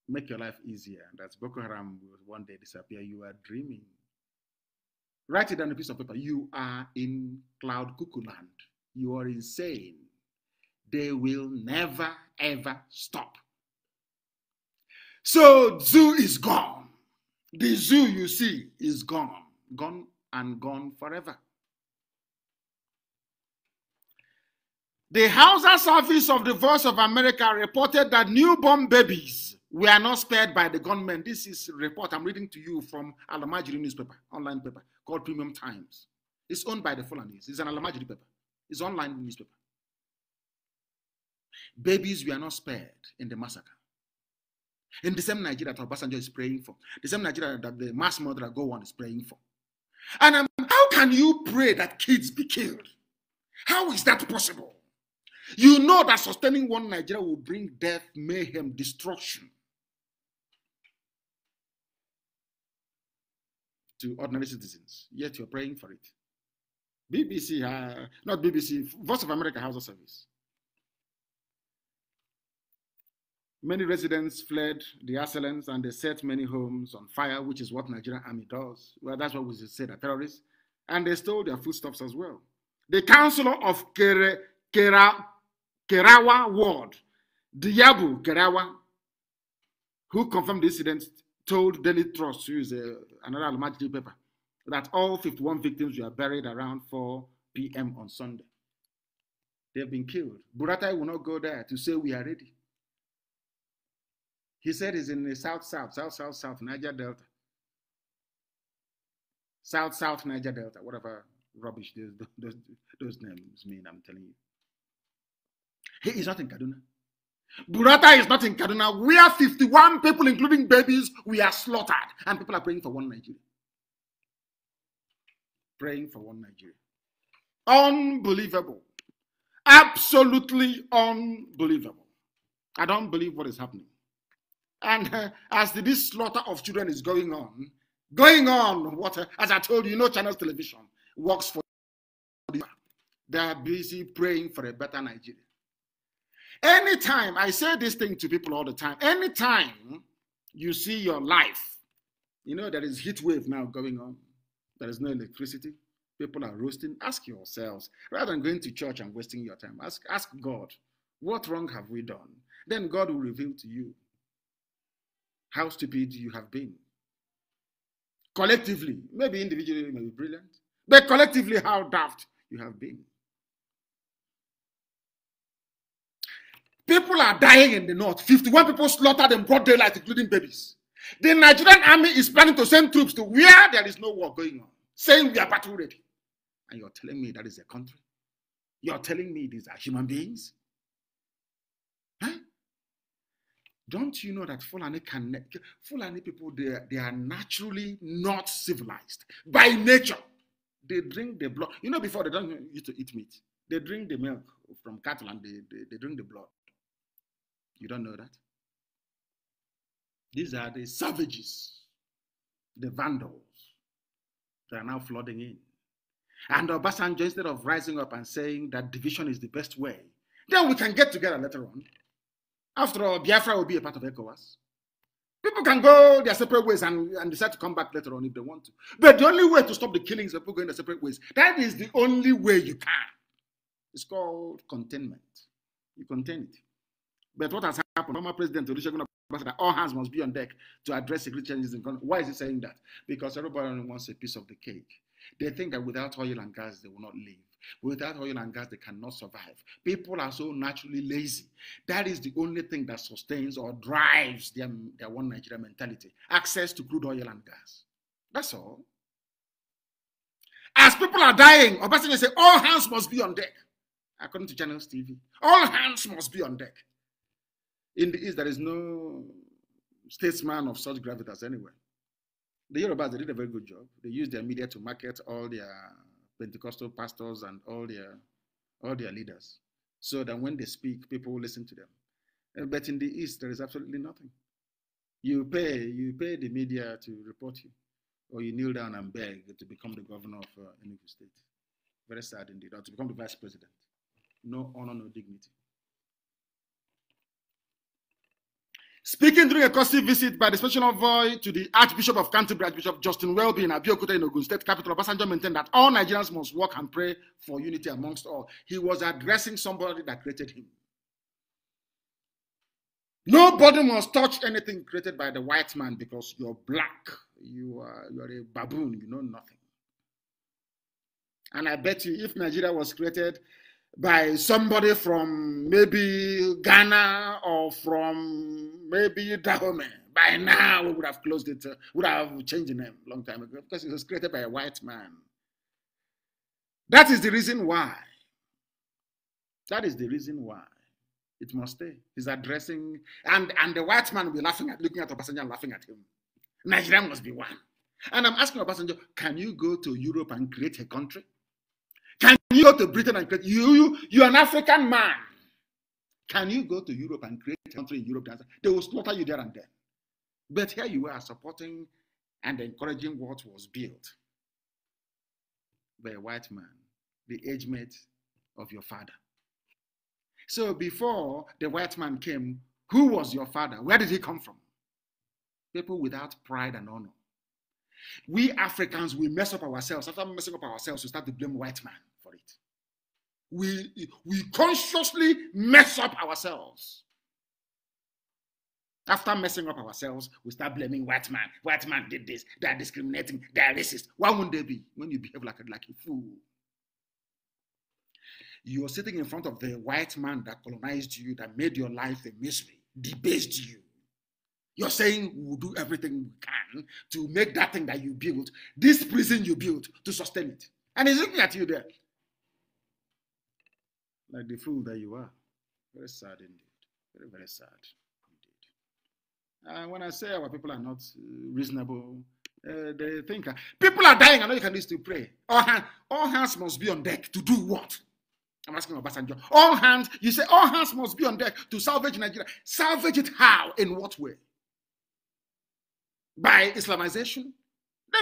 make your life easier. And as Boko Haram will one day disappear, you are dreaming. Write it on a piece of paper. You are in cloud cuckoo land. You are insane. They will never, ever stop. So, zoo is gone. The zoo you see is gone, gone and gone forever. The Hausa Service of the Voice of America reported that newborn babies were not spared by the government. This is report I'm reading to you from Alamajiri newspaper, online paper called Premium Times. It's owned by the Fulanese. It's an Alamajiri paper. It's online newspaper. Babies were not spared in the massacre. In the same Nigeria that Obasanjo is praying for, the same Nigeria that the mass murderer Go on is praying for. And um, how can you pray that kids be killed? How is that possible? You know that sustaining one Nigeria will bring death, mayhem, destruction to ordinary citizens. Yet you're praying for it. BBC, uh, not BBC, Voice of America House of Service. Many residents fled the assailants and they set many homes on fire, which is what Nigerian army does. Well, that's what we say, the terrorists. And they stole their foodstuffs as well. The councillor of Kere, Kera Kerawa Ward, Diabu Kerawa, who confirmed the incident, told Daily Trust, who is a, uh, another Almaty paper, that all 51 victims were buried around 4 p.m. on Sunday. They've been killed. Buratai will not go there to say we are ready. He said he's in the South, South, South, South, South, Niger Delta. South, South, Niger Delta, whatever rubbish those, those, those names mean, I'm telling you. He is not in Kaduna. Burata is not in Kaduna, We are 51 people, including babies, we are slaughtered. And people are praying for one Nigeria. Praying for one Nigeria. Unbelievable. Absolutely unbelievable. I don't believe what is happening. And uh, as this slaughter of children is going on, going on, what, uh, as I told you, you know, Channels Television works for. They are busy praying for a better Nigeria. Anytime, I say this thing to people all the time, anytime you see your life, you know, there is heat wave now going on, there is no electricity, people are roasting. Ask yourselves, rather than going to church and wasting your time, ask, ask God, what wrong have we done? Then God will reveal to you how stupid you have been. Collectively, maybe individually, maybe brilliant, but collectively, how daft you have been. People are dying in the north. 51 people slaughtered in broad daylight, including babies. The Nigerian army is planning to send troops to where there is no war going on, saying we are battle ready. And you're telling me that is a country? You're telling me these are human beings? Huh? Don't you know that Fulani can Fulani people they, they are naturally not civilized by nature. They drink the blood. You know, before they don't used to eat meat. They drink the milk from cattle and they, they, they drink the blood. You don't know that? These are the savages, the vandals that are now flooding in. And Obasanjo, instead of rising up and saying that division is the best way, then we can get together later on. After all, Biafra will be a part of ECOWAS. People can go their separate ways and, and decide to come back later on if they want to. But the only way to stop the killings of people going their separate ways, that is the only way you can. It's called containment. You contain it. But what has happened? Former President Olusegun Obasanjo, all hands must be on deck to address security challenges in the country. Why is he saying that? Because everybody only wants a piece of the cake. They think that without oil and gas, they will not live. Without oil and gas, they cannot survive. People are so naturally lazy. That is the only thing that sustains or drives their, their one Nigeria mentality access to crude oil and gas. That's all. As people are dying, Obasanjo say all hands must be on deck, according to Channel TV. All hands must be on deck. In the East, there is no statesman of such gravitas anywhere. The Yorubas, they did a very good job. They used their media to market all their Pentecostal pastors and all their, all their leaders so that when they speak, people will listen to them. Uh, but in the East, there is absolutely nothing. You pay, you pay the media to report you, or you kneel down and beg to become the governor of uh, new State. Very sad indeed, or to become the vice president. No honor, no dignity. Speaking during a courtesy visit by the special envoy to the Archbishop of Canterbury, Archbishop Justin Welby in Abiyokuta in Ogun State capital, Obasanjo maintained that all Nigerians must work and pray for unity amongst all. He was addressing somebody that created him. Nobody must touch anything created by the white man because you're black. You are, you are a baboon. You know nothing. And I bet you if Nigeria was created by somebody from maybe Ghana or from maybe Dahomey. By now, we would have closed it, uh, would have changed the name long time ago because it was created by a white man. That is the reason why. That is the reason why it must stay. He's addressing, and, and the white man will be laughing at, looking at Obasanjo and laughing at him. Nigeria must be one. And I'm asking Obasanjo, can you go to Europe and create a country? you go to Britain and create, you, you, you're an African man. Can you go to Europe and create a country in Europe? They will slaughter you there and then. But here you are supporting and encouraging what was built by a white man, the age mate of your father. So before the white man came, who was your father? Where did he come from? People without pride and honor. We Africans, we mess up ourselves. After messing up ourselves, we start to blame white man we, we consciously mess up ourselves. After messing up ourselves, we start blaming white man. White man did this. They are discriminating. They are racist. Why wouldn't they be when you behave like, a like a fool? You're sitting in front of the white man that colonized you, that made your life a misery, debased you. You're saying we'll do everything we can to make that thing that you built, this prison you built, to sustain it. And he's looking at you there like the fool that you are. Very sad indeed. Very, very sad indeed. And ah, when I say our people are not uh, reasonable, uh, they think uh, people are dying. I know you can still pray. All, hand, all hands must be on deck to do what? I'm asking Obasanjo. All hands, you say all hands must be on deck to salvage Nigeria. Salvage it how? In what way? By Islamization?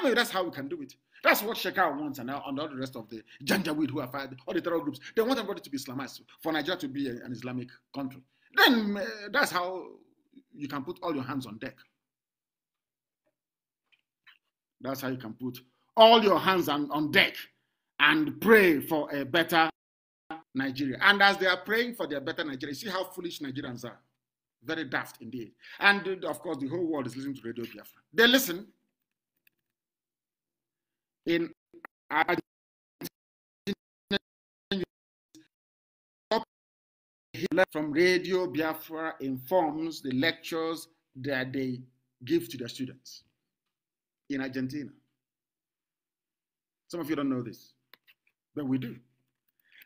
Maybe that's how we can do it. That's what Shekau wants, and now and all the rest of the Janjaweed who are fired, all the terror groups, they want everybody to be Islamized for Nigeria to be an Islamic country. Then uh, that's how you can put all your hands on deck. That's how you can put all your hands on, on deck and pray for a better Nigeria. And as they are praying for their better Nigeria, see how foolish Nigerians are. Very daft indeed. And uh, of course, the whole world is listening to Radio Biafra. They listen, in Argentina from Radio Biafra informs the lectures that they give to their students in Argentina. Some of you don't know this, but we do.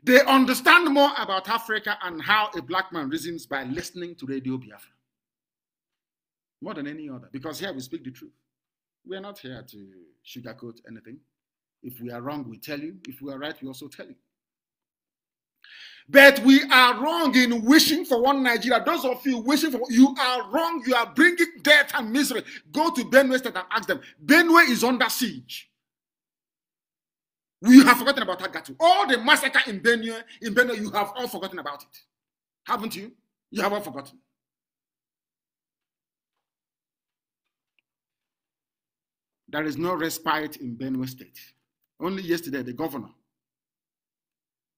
They understand more about Africa and how a black man reasons by listening to Radio Biafra. More than any other, because here we speak the truth. We are not here to sugarcoat anything. If we are wrong, we tell you. If we are right, we also tell you. But we are wrong in wishing for one Nigeria. Those of you wishing for you are wrong. You are bringing death and misery. Go to Benue State and ask them. Benue is under siege. We have forgotten about Agatu. All the massacre in Benue, in Benue, you have all forgotten about it, haven't you? You have all forgotten. There is no respite in Benue State. Only yesterday, the governor,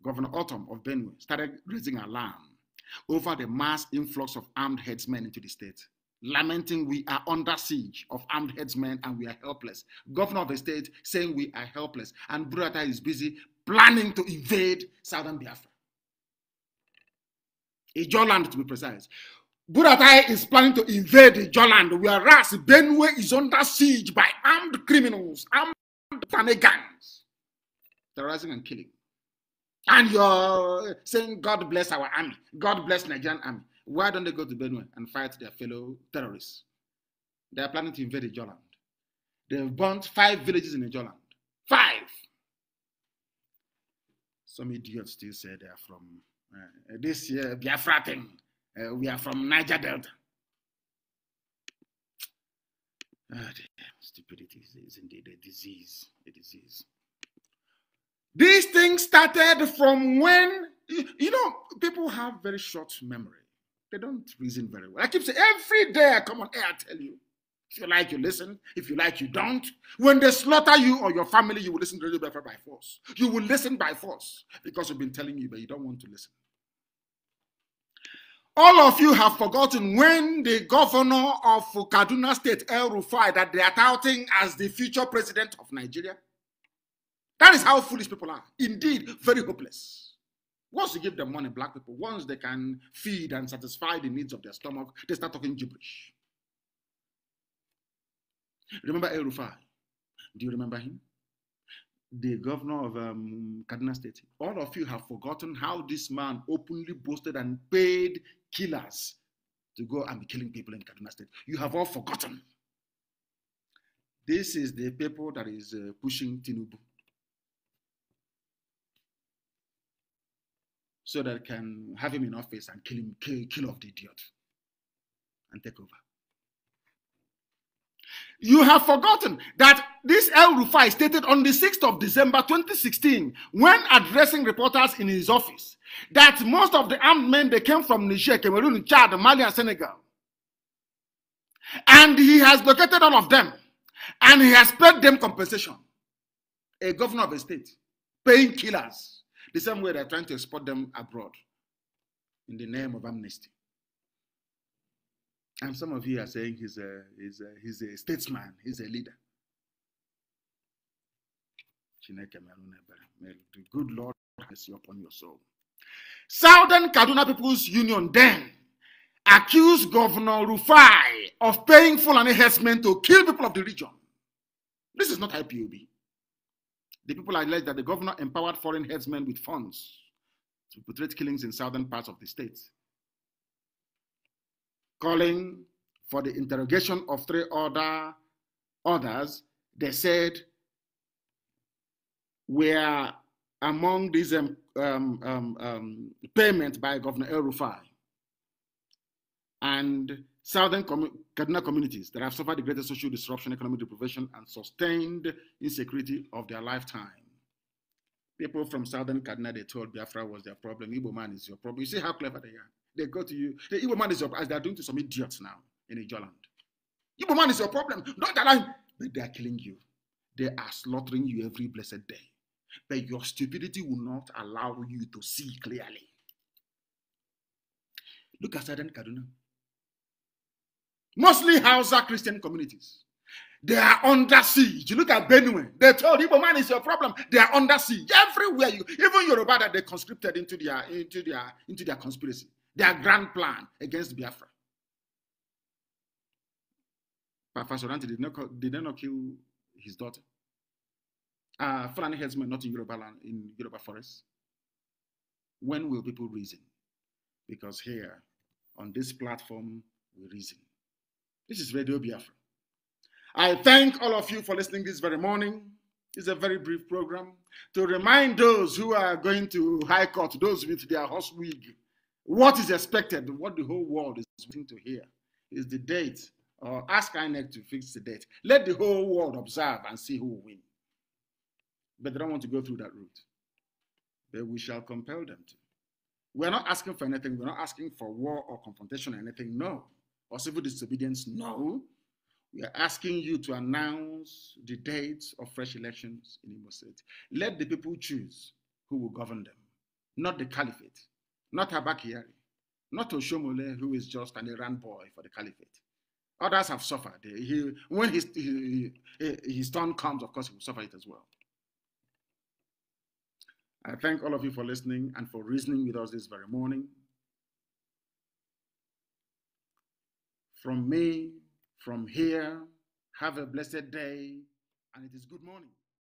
Governor Autumn of Benue, started raising alarm over the mass influx of armed headsmen into the state, lamenting we are under siege of armed headsmen and we are helpless. Governor of the state saying we are helpless, and Burata is busy planning to invade southern Biafra. Ijoland, to be precise. Buratai is planning to invade Ijoland, whereas Benue is under siege by armed criminals, armed shenanigans, terrorizing and killing. And you're saying, God bless our army, God bless Nigerian army. Why don't they go to Benue and fight their fellow terrorists? They are planning to invade Ijoland. They've burnt five villages in Ijoland. Five! Some idiots still say they are from uh, this year, Biafra thing. Uh, we are from Niger Delta. Oh dear. Stupidity is indeed a disease. A disease. These things started from when, you know, people have very short memory. They don't reason very well. I keep saying every day I come on air, I tell you. If you like, you listen. If you like, you don't. When they slaughter you or your family, you will listen to the Biafra by force. You will listen by force because we've been telling you, but you don't want to listen. All of you have forgotten when the governor of Kaduna State, El Rufai, that they are touting as the future president of Nigeria. That is how foolish people are. Indeed, very hopeless. Once you give them money, black people, once they can feed and satisfy the needs of their stomach, they start talking gibberish. Remember El Rufai? Do you remember him? the governor of um, Kaduna State. All of you have forgotten how this man openly boasted and paid killers to go and be killing people in Kaduna State. You have all forgotten. This is the people that is uh, pushing Tinubu. So that can have him in office and kill him, kill, kill off the idiot and take over. You have forgotten that this El Rufai stated on the 6th of December 2016, when addressing reporters in his office, that most of the armed men they came from Niger, Cameroon, Chad, Mali, and Senegal. And he has located all of them, and he has paid them compensation. A governor of a state paying killers the same way they're trying to export them abroad in the name of amnesty. And some of you are saying he's a, he's a, he's a statesman, he's a leader. The good Lord bless you upon your soul. Southern Kaduna People's Union then accused Governor Rufai of paying full enhancement to kill people of the region. This is not IPOB. The people alleged that the governor empowered foreign headsmen with funds to perpetrate killings in southern parts of the state calling for the interrogation of three other others, they said were among these um, um, um, um, payments by Governor El Rufai and Southern commu- Kaduna communities that have suffered the greatest social disruption, economic deprivation, and sustained insecurity of their lifetime. People from Southern Kaduna, they told Biafra was their problem. Igbo man is your problem. You see how clever they are. They go to you. The evil man is your as they are doing to some idiots now in Ijoland. Evil man is your problem. Not that I but they are killing you. They are slaughtering you every blessed day. But your stupidity will not allow you to see clearly. Look at Southern Kaduna. Mostly Hausa Christian communities. They are under siege. look at Benue. They told evil man is your problem. They are under siege everywhere. You, even Yoruba that they conscripted into their into their into their conspiracy their grand plan against Biafra. But Fasoranti did not, did not kill his daughter. Uh, Fulani headsmen, not in Yoruba land, in Yoruba forest. When will people reason? Because here, on this platform, we reason. This is Radio Biafra. I thank all of you for listening this very morning. It's a very brief program to remind those who are going to High Court, those with their horse wig, what is expected, what the whole world is waiting to hear, is the date. Or ask INEC to fix the date. Let the whole world observe and see who will win. But they don't want to go through that route. But we shall compel them to. We're not asking for anything. We're not asking for war or confrontation or anything. No. Or civil disobedience. No. We are asking you to announce the dates of fresh elections in Imo State. Let the people choose who will govern them, not the caliphate not Abakari, not Oshomole, who is just an Iran boy for the caliphate. Others have suffered. He, when his, he, his turn comes, of course, he will suffer it as well. I thank all of you for listening and for reasoning with us this very morning. From me, from here, have a blessed day, and it is good morning.